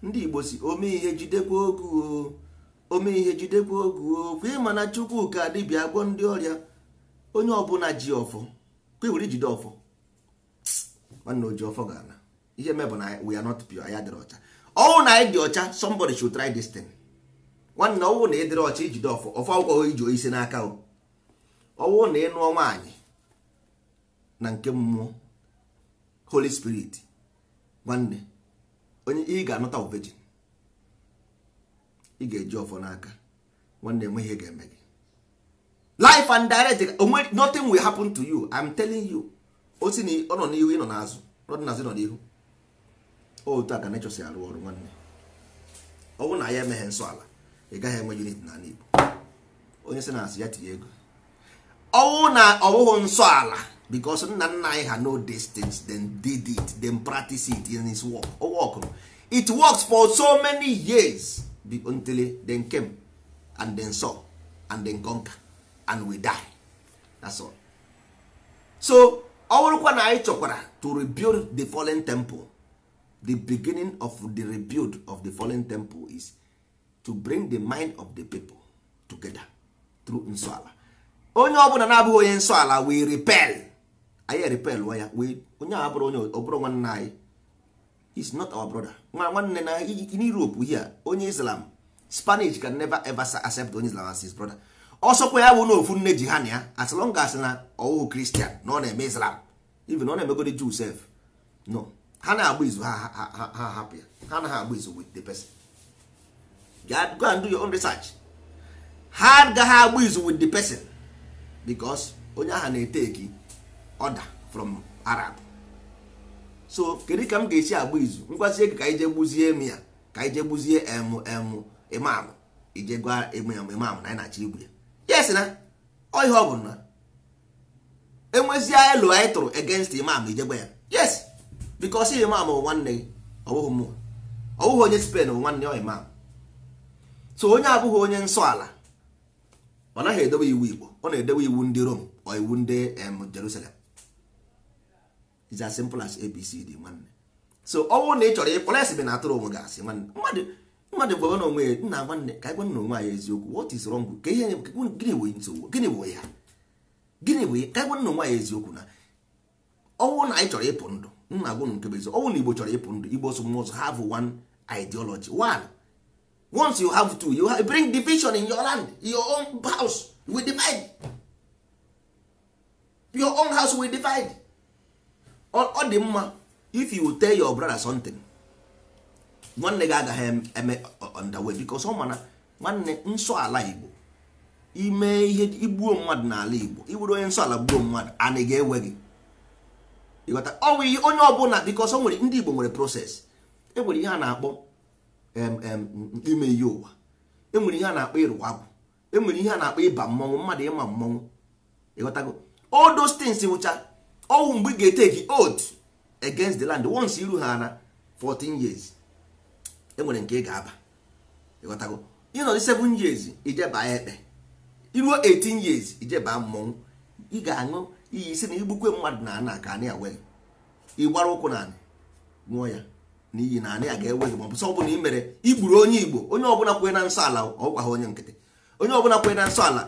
ndị Igbo si ome ihe jidekwa ogu ome ihe jidekwa ogu okwu ịma na Chukwu ka dibịa gwọ ndị ọrịa onye ọbụla ji ọfọ kwebiri ijide ọfọ nwanne oji ọfọ ga ana ihe mebụ na we are not pure anya dịrị ọcha ọnwụ na anyị dị ọcha somebody should try this thing nwanne ọnwụ na ịdịrị ọcha ijide ọfọ ọfọ akwụkwọ iji isi n'aka o ọnwụ na ịnụọ nwaanyị na nke mmụọ holy spirit nwanne onye ị ga-anụta virgin ị ga-eji ọfọ n'aka nwanne enweghị ihe ga-eme gị life and direct nothing will happen to you i'm telling you o si na ọ nọ n'ihu ị nọ n'azụ ọ dị n'azụ nọ n'ihu otu a ka nature si arụ ọrụ nwanne ọ bụrụ na ya emeghe nsọ ala ị gaghị enwe unit na ala Igbo onye si na-asị ya tinye ego ọwụ na ọwụghụ nsọ ala because nna nna anyị ha no distance dem then did it then practice it in his work o workụrụ it works for so many years until then came and then saw and then conquer and we die that's all so ọ bụrụkwa na anyị chọkwara to rebuild the fallen temple the beginning of the rebuild of the fallen temple is to bring the mind of the people together through nsọala onye ọbụla na-abụghị onye nsọala we repel anyị repel wa ya onye bụrụ onye ọbụrụ nwanne anyị is not our brother nwa nwanne na in Europe here onye Islam Spanish can never ever accept onye Islam as his brother ọsọkwa ya bụ na ofu nne ji ha na ya as long as na kristian na ọ na-eme islam even ọ na-emegode jew sef no ha na-agba izu ha ha hapụ ya ha na agba izu with the person go and do your ha gaghị agba izu with the person because onye ahụ na-eteki ọda from arab so kedu ka m ga-esi agba izu ngwazie ka anyị jee gbuzie m ya ka anyị jee gbuzie emụ imam ije gwa emụ imam na ị na-achọ ya yes na ọ ihe ọ bụ na enwezie elu anyị tụrụ against imam ijegbe ya yes because imam bụ nwanne gị ọ bụghị mmụọ onye spen bụ nwanne ọ imam so onye abụghị onye nsọ ala ọ naghị edowe iwu Igbo ọ na edowe iwu ndị rom ọ iwu ndị Jerusalem is as simple as ABCD nwanne so ọ bụrụ na ị chọrọ ịkpọrọ esi na atụrụ onwe gị asị nwanne mmadụ mmadụ gwara na onwe ya nna nwanne ka anyị gwa na onwe anyị eziokwu what is wrong ka ihe gịnị bụ nsogbu gịnị bụ ya gịnị bụ ka anyị na onwe anyị eziokwu na ọnwụ na anyị chọrọ ịpụ ndụ nna agwụ nke bụ ọnwụ na igbo chọrọ ịpụ ndụ igbo so mụzọ have one ideology one once you have two you bring division in your land your own house we divide your own house we divide ọ dị mma if you tell your brother something nwanne gị agaghị eme underway because ọ mana nwanne nsọ ala igbo ime ihe igbuo mmadụ n'ala igbo iwere onye nsọ ala gbuo mmadụ ana ga-ewe gị ịghọta ọnwụ ihe onye ọbụla because ọ nwere ndị igbo nwere proses enwere ihe a na-akpọ ime ihe ụwa enwere ihe a na-akpọ ịrụwa abụ enwere ihe a na-akpọ ịba mmọnwụ mmadụ ịma mmọnwụ ịghọtago all those things wụcha ọnwụ mgbe ị ga-eteki oath against the land once iru ha na 14 years enwere nke ị ga-aba ịghọtago ịnọdụ 7 years ijeba ekpe iruo 18 years ijeba mmọnwụ ị ga-aṅụ iyi isi na igbukwe mmadụ na ana ka anị awe ịgbara ụkwụ na anị ṅụọ ya niyi iyi na anị a ga-ewe gị ma ọ sọ ọbụla ị mere igburu onye igbo onye ọbụla kwe na nsọ ala ọgwaghị onye nkịtị onye ọbụla kwee na nsọ ala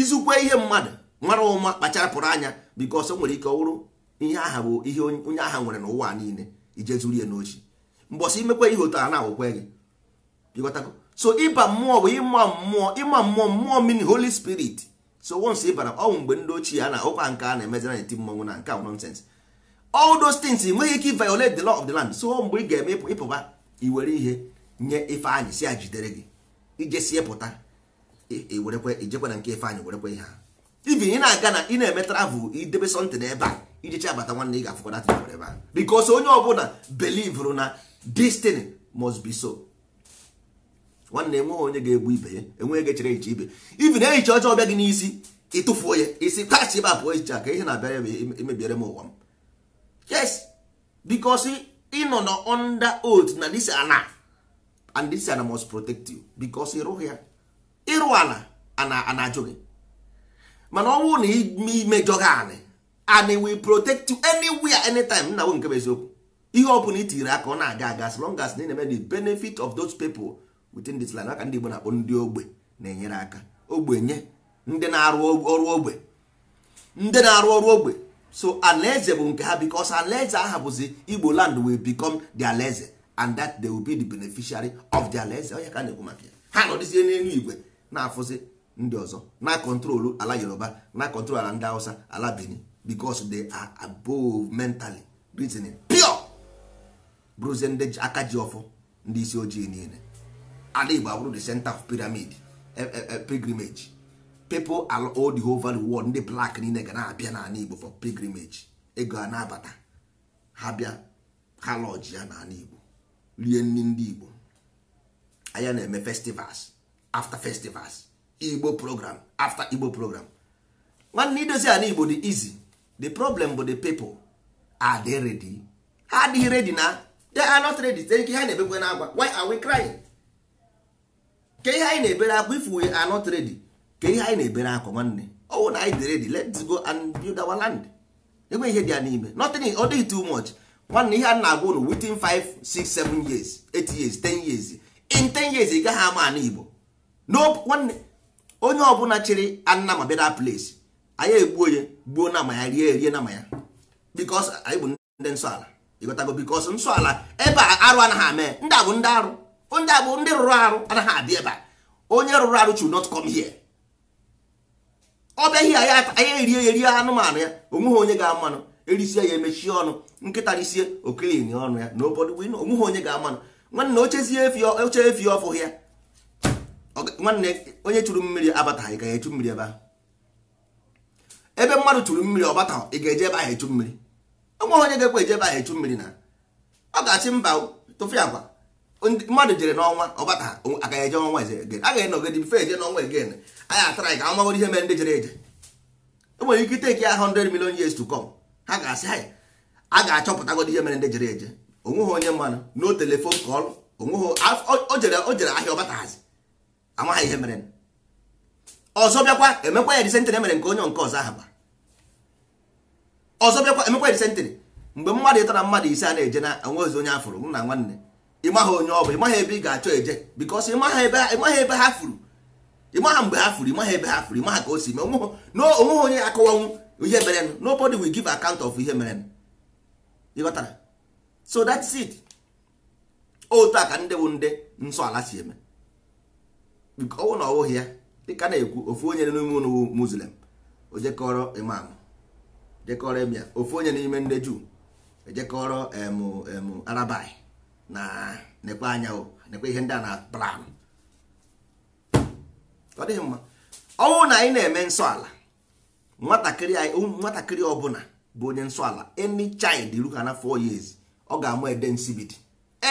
izukwe ihe mmadụ mara ụma kpacharapụrụ anya bikos o nwere ike ọ wụrụ ihe aha bụ ihe onye agha nwere n'ụwa niile ije zuru ya n'ochi mbọsị imekwe ihe otu a na-agwụkwe gị ịghọtago so ịba mmụọ bụ ịma mmụọ ịma mmụọ mmụọ mini holy spirit so once ịbara bara ọnwụ mgbe ndị ochie a na ụkwa nke a na-emezira n'eti mmọnwụ na nke nonsense all those things nweghị ike violate the law of the land so mgbe ị ga-eme ịpụba iwere ihe nye ife si a jidere gị ijesie pụta iwerekwe ijekwe na nke ife anyị werekwe ihe ha ibi ị na-aga na ị na-eme travel idebe sọntị n'ebe a ijecha abata nwanne ị ga-afụkwa datị ebe a because onye ọbụla belivrụ na destiny must be so nwanne enweghị onye ga-egbu ibe ya enweghị ga chere eche ibe Even na ehicha ọjọọ ọbịa gị n'isi ịtụfuo ya isi kasị ebe a pụọ ehicha ka ihe na abịa ya emebiere m ụwa m yes because ịnọ na under oath na this ana and this ana must protect you because ịrụghị ya ịrụ ana ana ajụ gị mana ọ bụrụ na imejọ gị anị and will protect you anywhere anytime nna bụ nke bụ eziokwu ihe ọ bụla itiri aka ọ na-aga aga as long as na na-eme the benefit of those people within this land aka ndị Igbo na-akpọ ndị ogbe na-enyere aka ogbenye ndị na-arụ ọrụ ogbe ndị na-arụ ọrụ ogbe so alaeze bụ nke ha because alaeze aha bụzi Igbo land will become the alaeze and that they will be the beneficiary of the alaeze onye ka na-ekwu maka ya ha nọdịzie n'elu igwe na-afụzi ndị ọzọ na kọntrolu ala Yoruba na kọntrol ala ndị Hausa ala Benin because they are above mentally reasoning bụrụzie ndị aka ji ọfụ ndị isi ojii niile ala igbo abụrụ the center of pyramid e, e, e, pilgrimage people all all the whole world ndị black niile ga na-abịa n'ala igbo for pilgrimage ego a na-abata ha bịa ha lọji ya n'ala igbo rie nri ndị igbo anya na-eme festivals after festivals igbo program after igbo program nwanne idozi ala igbo dị easy the problem bụ the people are they ready ha adịghị ready na they are not ready tee ihe ha na ebegwe na agwa why are we crying ke ihe anyị na-ebere akwa if we are not ready ke ihe anyị na-ebere akwa nwanne ọwụ na anyị dị ready let's go and build our land enweghị ihe dị ya n'ime notin ọ too much nwanne ihe a na-agwa ụlọ within 5 6 7 years 8 years 10 years in 10 years ị gaghị ama ana Igbo nwanne onye ọbụla chịrị anna ma place anyị egbuo onye gbuo na ama ya rie erie na ama ya because anyị bụ ndị nsọ ala ịgotago bikos nsọ ala ebe a arụ anaghị ame ndị a ndị arụ ndị a ndị rụrụ arụ anaghị abịa ebe a onye rụrụ arụ chu not come here ọ bịaghị ya anya erie erie anụmanụ ya onweghị onye ga-amanụ erisie ya emechie ọnụ nkịta risie okelini ọnụ ya na obodo win onweghị onye ga-amanụ nwanne ochezie oche efi ọfụ ya nwanne onye chụrụ mmiri ị ga echu mmiri ebe ahụ ebe mmadụ chụrụ mmiri ọ bataghị ị ga-eje ebe ahụ echu mmiri nweghị onye ga-ekwe ejebe ahụ echu mmiri na ọ ga-achị mba tụfu agwa mmadụ jere n'ọnwa ọgbata agaghị eje ọnwa eze a ga-enọgide fe eje n'ọnwa egen anyị atara anyị ka a magoro ihe mere ndị jere eje enwere ike iteki ya 100 million years to come ha ga-asị anyị a ga-achọpụtagodi ihe mere ndị jere eje onweghị onye mmanụ no telefon kọl o jere ahịa ọgbatahazi amaghị ihe mere ọzọ bịakwa emekwa ya disentị emere nke onye nke ọzọ ahụ ba ọzọ bịakwa emekwa disentịrị mgbe mmadụ ịtọ na mmadụ ise a na-eje na onwezi onye afụrụ mụ na nwanne ịmaghị onye ọ bụ ịmaghị ebe ị ga-achọ eje bikọs ịmaghị ebe ha furu ịmaghị mgbe ha furu ịmaghị ebe ha furu ịmaghị ka o si mee onweghị onye akọwanwu ihe merenụ nobody will give account of ihe merenụ ịghọtara so that's it otu a ka ndị bụ ndị nsọ ala si eme ọnwụ na ọwụghị ya dịka na-ekwu ofu onye n'ime ụnụ muslim oje kọrọ imam jekọrọ emia ofu onye n'ime ndị juu ejekọrọ em arabai na n'ekpe anya n'ekpe ihe ndị a na plan ọ dịghị mma ọnwụ na anyị na-eme nsọ ala nwatakịrị anyị nwatakịrị ọbụla bụ onye nsọ ala any child ruha na 4 years ọ ga-ama ede nsibidi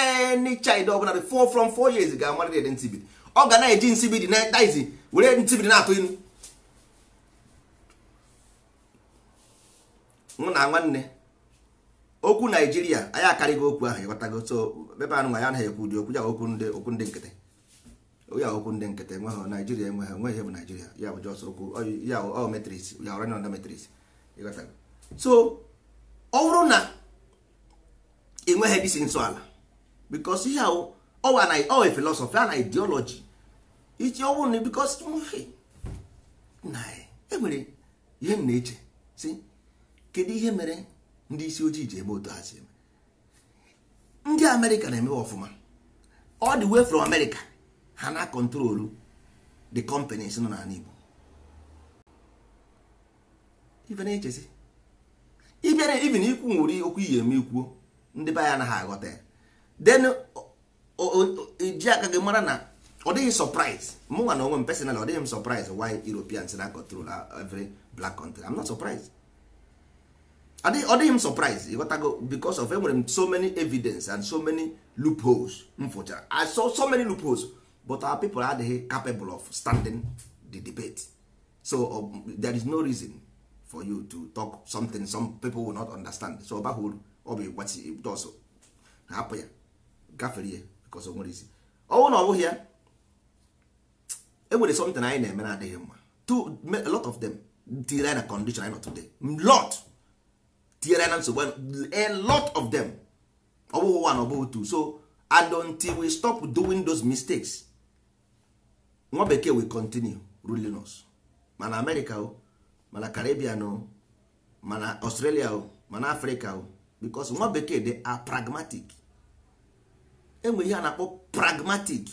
any child ọbụla dị 4 from 4 years ga-amarịrị ede nsibidi ọ ga na-eji nsibidi na daizi were nsibidi na-atụ ilu mụ na nwanne okwu naijiria anyị akarịghị okwu ahụ ịghọtago so ebe anụ nwa ya anaghị ekwu ụdị okwu ya okwu ndị okwu ndị nkịtị ya okwu ndị nkịtị enweghị naijiria enweghị onweghị ihe bụ naijiria ya bụ jọs okwu ya ọ metris ya ọranye ọnda metris ịghọtago so ọ bụrụ na enweghị disi nso ala bikos ihe ahụ ọwa filosọfi a na ideology iji ọ na bikos enwere ihe m na-eche si kedu ihe mere ndị isi ojii ji eme otu ha eme ndị amerịka na-emewe ọfụma ọ dị way from amerịka ha na kọntrolu the companies nọ n'ala igbo ịbịara even ikwu nwere okwu iyi eme ikwuo ndị be anya anaghị aghọta ya then ji aka gị mara na ọ dịghị surprise mụnwa na onwe m personal ọ dịghị m surprise why europeans na control every black country i'm not surprised ọ dịghị m surprise ịghọtago because of enwere m so many evidence and so many loopholes m fụchara I saw so many loopholes but our people adịghị capable of standing the debate so um, there is no reason for you to talk something some people will not understand so ọbaghị uru ọ bụ ịgbatị dọsụ hapụ ya gafere ya because o nwere isi ọnwụ na ọ bụghị ya enwere something anyị na-eme na adịghị mma a lot of them tiri anyị na condition anyị nọ today lot tinyere na nsogbu a lot of them ọ bụghị one ọ bụghị two so until we stop doing those mistakes nwa bekee we continue ruling us mana america o mana caribbean o mana australia o mana africa o because nwa bekee they are pragmatic enwe ihe a na-akpọ pragmatic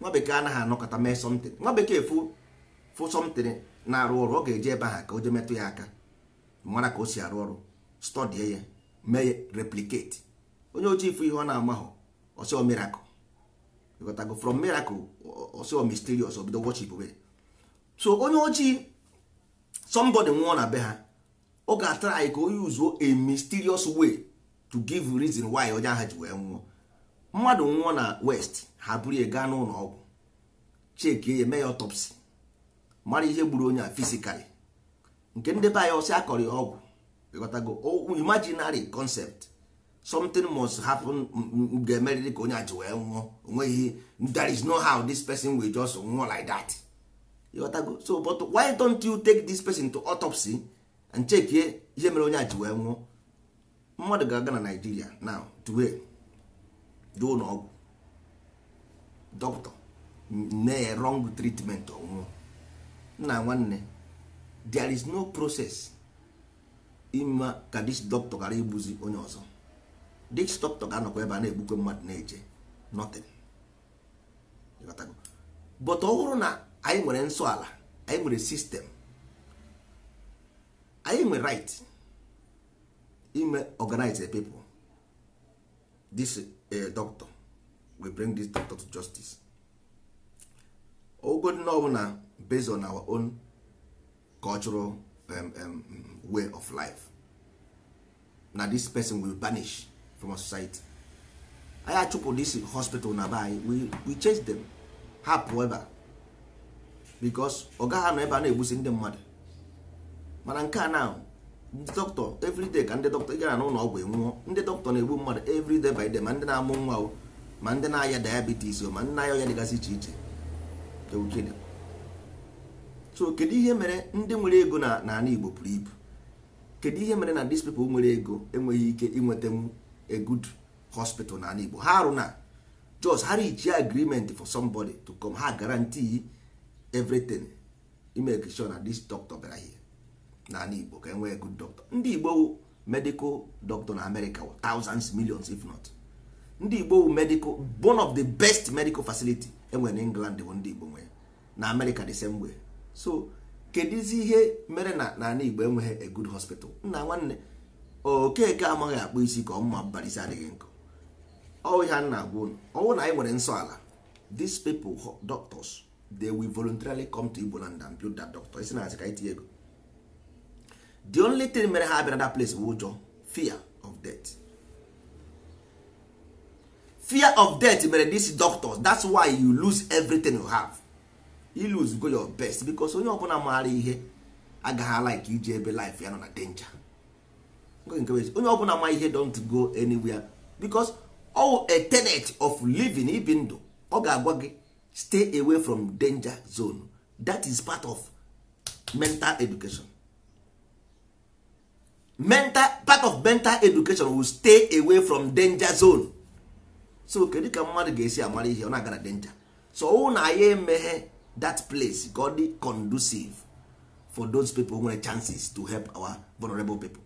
nwa bekee anaghị anọkọta mee something nwa bekee fụ fụ na-arụ ọrụ ọ ga-eji ebe ha ka o je metụ ya aka mara ka o si arụ ọrụ stọdie ya mee replicate onye ojii ifu ihe ọ na-amahụ ọsọ miracle ịghọtago from miracle ọsọ mysterious obido worship way so onye ojii somebody nwụọ na be ha ọ ga-atara anyị ka onye uzuo a mysterious way to give reason why onye ahụ ji wee nwụọ mmadụ nwụọ na west ha buru ya gaa n'ụlọ ọgwụ chekie ya mee ya autopsy mara ihe gburu onye a physically nke ndị be anyị ọsị akọrọ ọgwụ ịghọtago imaginary concept something must happen ga-emerịrị ka onye aji wee nwụọ onweghị there is no how this person will just nwụọ like that ịghọtago so but why don't you take this person to autopsy and check ihe mere onye aji wee nwụọ mmadụ ga-aga na Nigeria now today jee ụlọ ọgwụ dọkịta na-wrong treatment ọnwụọ nna nwanne there is no process ịma ka dis doctor gara igbuzi onye ọzọ dis doctor ga-anọkwa ebe a na-egbukwe mmadụ na-eje nothing but ọ na anyị nwere nsọ ala anyị nwere sistem anyị nwere right ime organize the people this uh, doctor we bring this doctor to justice ogodị na ọ na based on our own cultural um, um, way of life na this person will banish from society anyị achụpụ this hospital na be anyị we, we change them ha pụọ ebe a because ọ gaghị anọ ebe a na-egbusi ndị mmadụ mana nke a na ndị dọkịta everyday ka ndị dọkịta gara n'ụlọ ọgwụ enwụọ ndị dọkịta na-egbu mmadụ everyday by day ma ndị na-amụ nwa ma ndị na-aya diabetes ma ndị na-aya ọya dịgasị iche iche so kedu ihe mere ndị nwere ego na n'ala Igbo pụrụ ibu kedu ihe mere na ndị people nwere ego enweghị ike inwetanwu a good hospital n'ala Igbo ha arụ na just ha reach agreement for somebody to come ha garanti everything imeke na this doctor bịara ihe n'ala Igbo ka enwee good doctor ndị Igbo medical doctor na America thousands millions if not ndị Igbo medical one of the best medical facility enwere na England bụ ndị Igbo nwere na America the same way so kedụzi ihe mere na n'ala Igbo enweghị a good hospital nna nwanne okeke amaghị akpụ isi ka ọ mma mbarisi adịghị nkụ ọ ihe a na-agwa unu ọnwụ na anyị nwere nsọ ala these people doctors they will voluntarily come to Igbo land and build that doctor isi na asị ka itinye ego the only thing mere ha abịara that place bụ ụjọ fear of death fear of death mere these doctors that's why you lose everything you have lose go your best because onye bụla maara ihe agaghị alaik iji ebe life ya nọ na danger onye ọbụla ma ihe don't go anywhere because all a tenet of living ibi ndụ ọ ga-agwa gị stay away from danger zone that is part of mental education mental part of mental education will stay away from danger zone so kedu ka mmadụ ga-esi amara ihe ọ na-aga na danger so ọ na ya emeghe that place ka ọ conducive for those people nwere chances to help our vulnerable people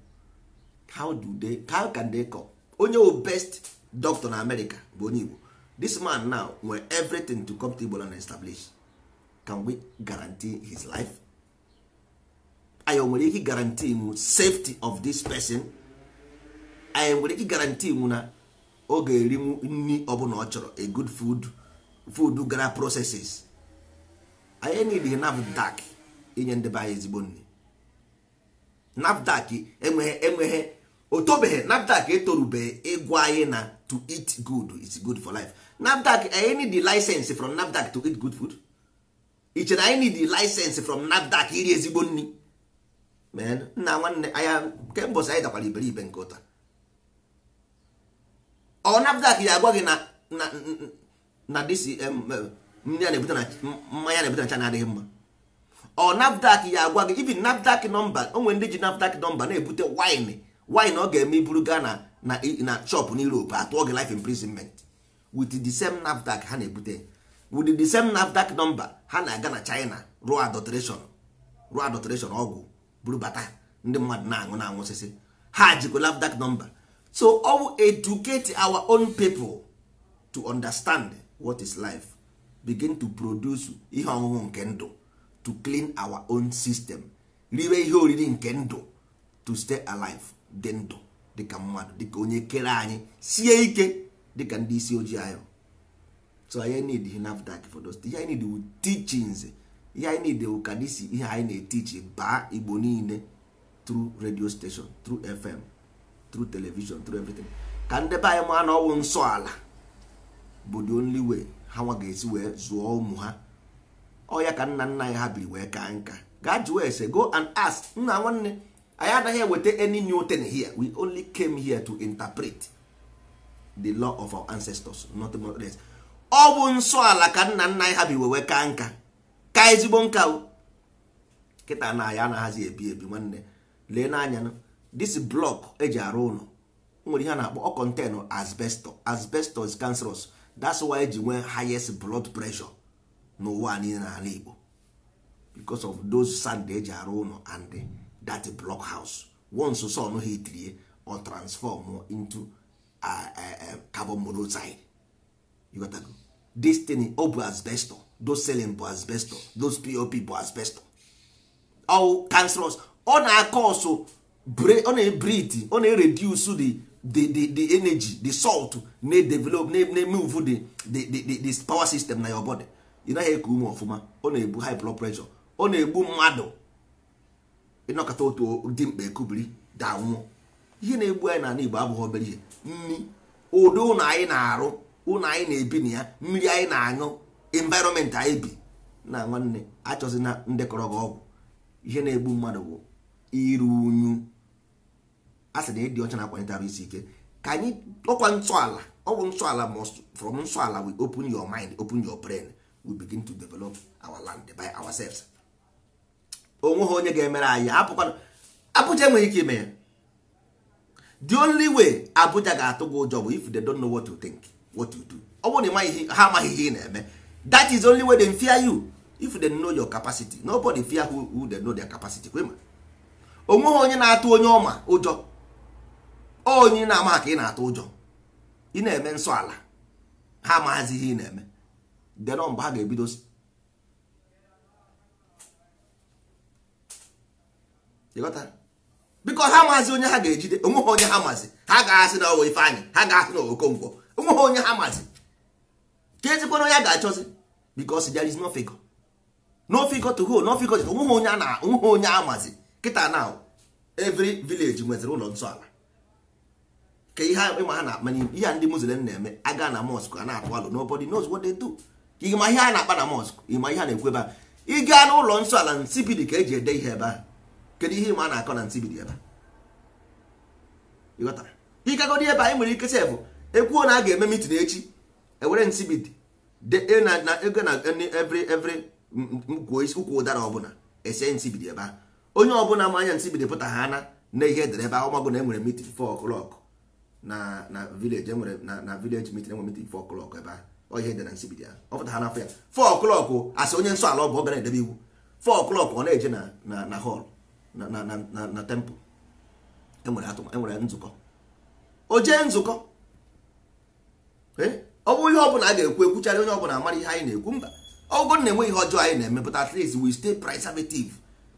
how do they how can they come onye o best doctor na America bụ onye Igbo this man now nwere everything to come to Igbo and establish can we guarantee his life anyị nwere ike guarantee mu safety of this person anyị nwere ike guarantee mu na ọ ga-erinwu nri ọbụla ọ chọrọ a good food food gara processes anyị nidi nafdak inye ndị be anyị ezigbo nri nafdak enweghị enweghị o tobeghị nafdak etorubeghị ịgwa anyị na to eat good is good for life nafdak anyị nidi license from nafdak to eat good food i chere anyị nidi license from nafdak iri ezigbo nri nna nwanne anya kemgbe anyị dakwara iberibe nke ụta ọ nafdak ya agwa gị na na na dcm ndị a na-ebute na mmanya na-ebute na China adịghị mma ọ NAFDAC ya agwa gị even NAFDAC nọmba onwe ndị ji NAFDAC nọmba na-ebute wine wine ọ ga-eme iburu ga na na shop na Europe atụọ gị life imprisonment with the same NAFDAC ha na-ebute with the same NAFDAC nọmba ha na-aga na China rụọ adulteration rụọ adulteration ọgwụ buru bata ndị mmadụ na-aṅụ na-aṅụ osisi ha jikwa NAFDAC nọmba so ọ bụ educate our own people to understand what is life begin to produce ihe ọṅụṅụ nke ndụ to clean our own system riwe ihe oriri nke ndụ to stay alive dị ndụ dịka mmadụ dịka onye kere anyị sie ike dịka ndị isi ojii anyị so anyị need nafdac for those ihe need wu teachings ihe anyị need wu ka ihe anyị na-etichi baa igbo niile through radio station through fm through television through everything ka ndebe anyị ma na ọwụ nsọ ala bụ the only way ha nwa ga-esi wee zụọ ụmụ ha ọya ka nna nna anyị ha biri wee ka nka gaa jụọ ese go and ask nna nwanne anyị anaghị eweta any new thing here we only came here to interpret the law of our ancestors not more less ọ bụ nsọ ala ka nna nna anyị ha bi wee ka nka ka ezigbo nka kịta na anyị anaghịzi ebi ebi nwanne lee n'anya this block eji arụ ụlọ nwere ihe a na-akpọ ọ contain asbestos asbestos cancerous that's why eji nwee highest blood pressure n'ụwa niile n'ala Igbo because of those sand eji arụ ụlọ and that block house once sun hitrie or transform into uh, uh, uh, carbon monoxide you got go. this thing ọ bụ asbestos those selling bụ asbestos those pop bụ asbestos all cancerous ọ na-akọsụ ọ na-ebrite ọ na-ereduce the the the the energy the salt na-edevelop na-emove the the the power system na your body ị naghị eku ume ọfụma ọ na-egbu high blood pressure ọ na-egbu mmadụ ịnọkọta otu dị mkpa ekubiri danwụọ ihe na-egbu anyị n'ala Igbo abụghị obere ihe nri ụdị ụlọ anyị na-arụ ụlọ anyị na-ebi na ya mmiri anyị na-aṅụ environment anyị bi na nwanne achọzina ndekọrọ gị ọgwụ ihe na-egbu mmadụ bụ iru unyu ha sị na ịdị ọcha na-akwanyete arụ isi ike ka anyị ọkwa ntọala ọgwụ ntọala from ntọala we open your mind open your brain we begin to develop our land by ourselves onwe ha onye ga-emere anyị hapụkwana Abuja enweghị ike ime ya the only way Abuja ga-atụ gị ụjọ bụ if they don't know what to think what to do ọ bụrụ na ha amaghị ihe ị na-eme that is the only way they fear you if they know your capacity nobody fear who, who they know their capacity kwema onweghị onye na-atụ onye ọma ụjọ onye na-ama ka ị na-atụ ụjọ ị na-eme nsọ ala ha maazi ihe ị na-eme denọ mgbe ha ga-ebidozi ebido bikọ ha amazi onye ha ga-ejide onweghị onye ha maazi ha ga-asị na ọwa ifeanyị ha ga-asị na okonkwo onweghị onye ha maazi ka ezikwana onye a ga-achọzi because there is no figure no figure to go no figure to onweghị onye a na onweghị onye a maazi kịta na every village nweziri ụlọ nsọ ala ka ihe ịma ha na-akpanye ihe ndị muslim na-eme aga na mosque a na-atụ alụ nobody knows what they do ịma ihe a na-akpa na mosque ịma ihe a na-ekwu ebe a ịga n'ụlọ nsọ ala nsibidi ka eji ede ihe ebe a kedu ihe ịma a na-akọ na nsibidi ebe a ịgagodi ebe anyị nwere ike sef ekwuo na a ga-eme mitin echi ewere nsibidi e na ego na e e every every ụkwụ ụdara ọbụla ese nsibidi ebe a onye ọbụla ma anya nsibidi pụta ha na ihe edere ebe ahụ magụ na enwere mitin 4 o'clock na na village enwere na na village meeting enwere meeting 4 o'clock ebe a ọ dị na nsibidi ya ọ pụtara n'afọ ya 4 o'clock asị onye nsọ ala ọ bụ ọ gara edebe iwu 4 o'clock ọ na-eje na na na hall na na na na temple enwere atụma enwere nzukọ o jee nzukọ ọ bụ ihe ọbụla a ga-ekwu ekwuchara onye ọbụla amara ihe anyị na-ekwu mba ọgụgụ na-enwe ihe ọjọọ anyị na-eme but at least we stay preservative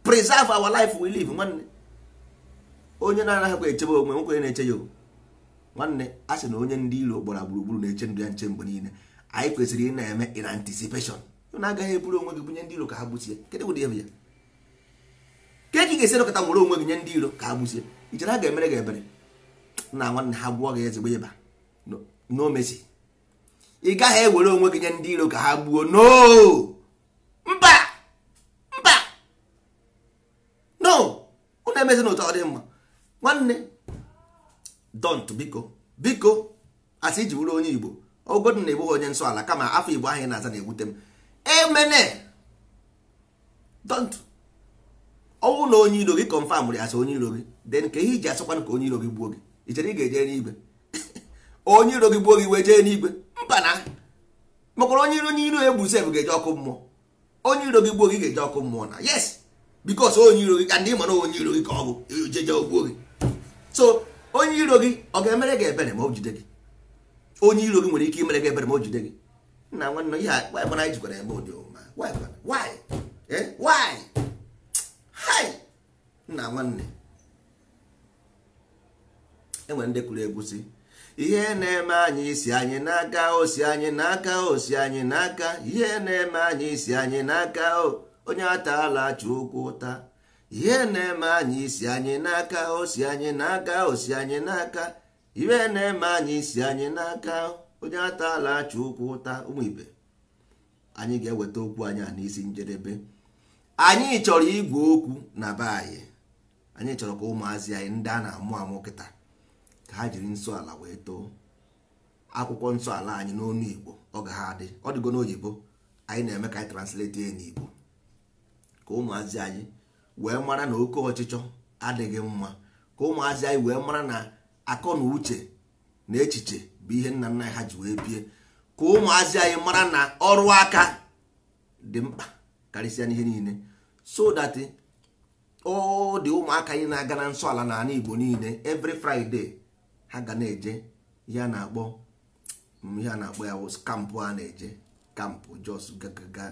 preserve our life we live nwanne onye na-anaghịkwa echebe onwe nwoke na-eche ya nwanne a sị na onye ndị iro gbara gburugburu na-eche ndụ ya nche mgbe niile anyị kwesịrị ị na-eme in anticipation na agaghị eburu onwe gị bunye ndị iro ka ha gbusie kedụ ụdị ebe ya ka ị ga-esi nọkọta nwere onwe gị nye ndị iro ka ha gbusie ichere ha ga-emere gị ebere na nwanne ha gwụọ gị ezigbo ịba n'omesi ị gaghị ewere onwe gị nye ndị iro ka ha gbuo no mba mba no unu emezi na ụtọ ọ dị mma nwanne dont biko biko asị iji bụrụ onye igbo ogodu na egbughị onye nsọ ala kama afọ igbo ahụ na-aza na-ewute m emene dont ọnwụ na onye iro gị kọnfam ya asị onye iro gị den ka ihe iji asọkwanụ ka onye iro gị gbuo gị i chere ị ga-eje n'igwe onye iro gị gbuo gị wee jee n'igwe mba na makwara onye iro onye iro egbu sef ga-eje ọkụ mmụọ onye iro gị gbuo gị ga-eje ọkụ mmụọ na yes bikos onye iro gị ka ndị ịmara onye iro gị ka ọ bụ jeje ogbuo gị so onye iro gị ọ ga-emere gị ebere ma o jide gị onye iro gị nwere ike imere gị ebere ma o jide gị nna nwanne ihe anyị anyị jikwara ebe ụdị ụma why eh? nna nwanne enwere ndị kụrụ egwusi ihe na-eme anyị isi anyị n'aka osi anyị n'aka osi anyị n'aka ihe na-eme anyị isi anyị n'aka onye ataala achụ okwu ụta ihe na-eme anyị isi anyị n'aka osi anyị n'aka osi anyị n'aka ihe na-eme anyị isi anyị n'aka onye ataala achụ ụkwụ ụta ụmụ ibe anyị ga-eweta okwu anyị a n'isi njedebe anyị chọrọ igwe okwu na be anyị anyị chọrọ ka ụmụazị anyị ndị a na-amụ amụ kịta ka ha jiri nsọ ala wee too akwụkwọ nsọ ala anyị n'ọnụ igbo ọ ga ha adị ọ dịgo n'oyibo anyị na-eme ka anyị translate ya n'igbo ka ụmụazị anyị wee mara na oke ọchịchọ adịghị mma ka ụmụazị anyị wee mara na akọ na uche na echiche bụ ihe nna nna ha ji wee bie ka ụmụazị anyị mara na ọrụ aka dị mkpa karịsịa n'ihe niile so that ọ dị ụmụaka anyị na-aga na nsọ ala n'ala Igbo niile every Friday ha ga na-eje ihe a na-akpọ ihe a na-akpọ ya kampụ a na-eje kampụ jos gaga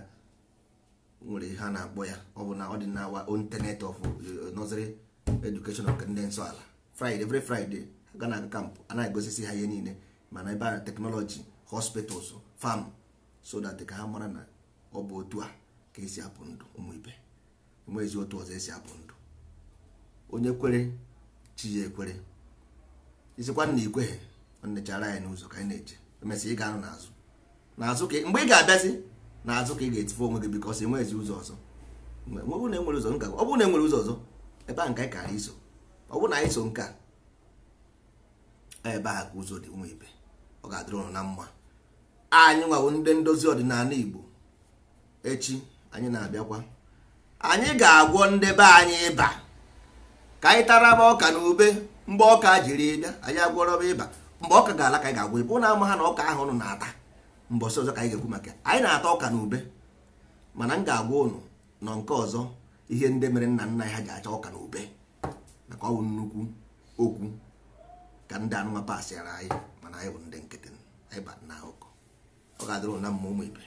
nwere ha na-akpọ ya ọ bụ na ọ dị na our own tenet of eh, nursery education of ndị nsọ ala friday every friday ga na aga kampụ a na-egosisi ha ihe niile mana ebe a teknọlọji hospitals farm so that ka ha mara na ọ bụ otu a ka esi apụ ndụ ụmụ ibe ụmụ ezi otu ọzọ esi apụ ndụ onye kwere chi ya ekwere isikwa na ikweghị ọ nechara anyị n'ụzọ ka anyị na eche emesịa ị ga-anụ n'azụ n'azụ ka mgbe ị ga-abịazi n'azụ ka ị ga-etife onwe gị bikọs enwezi ụzọ ọzọ ụzọ ọ bụrụ na enwere ụzọ ọzọ ebe a nke anyị kara iso ọ bụrụ na anyị so nke a ebe a ka ụzọ dị nwa ibe ọ ga-adịrị ụnụ na mma anyị nwawo ndị ndozi ọdịnala Igbo echi anyị na-abịakwa anyị ga-agwọ ndị be anyị ịba ka anyị tara taraba ọka na ube mgbe ọka jiri bịa anyị agwọrọ agwọrọba ịba mgbe ọka ga-ala ka anyị ga-agwọ ịba ụnụ ama ha na ọka ahụ ụnụ na-ata mbọsị ọzọ ka anyị ga-ekwu maka anyị na-ata ọka na ube mana m ga-agwa ụnụ nọ nke ọzọ ihe ndị mere nna nna ha ji acha ọka na ube maka ọ bụ nnukwu okwu ka ndị anụma pasịara anyị mana anyị bụ ndị nkịtị anyị ba na ụkọ ọ ga-adịrụ na mma ụmụ ibe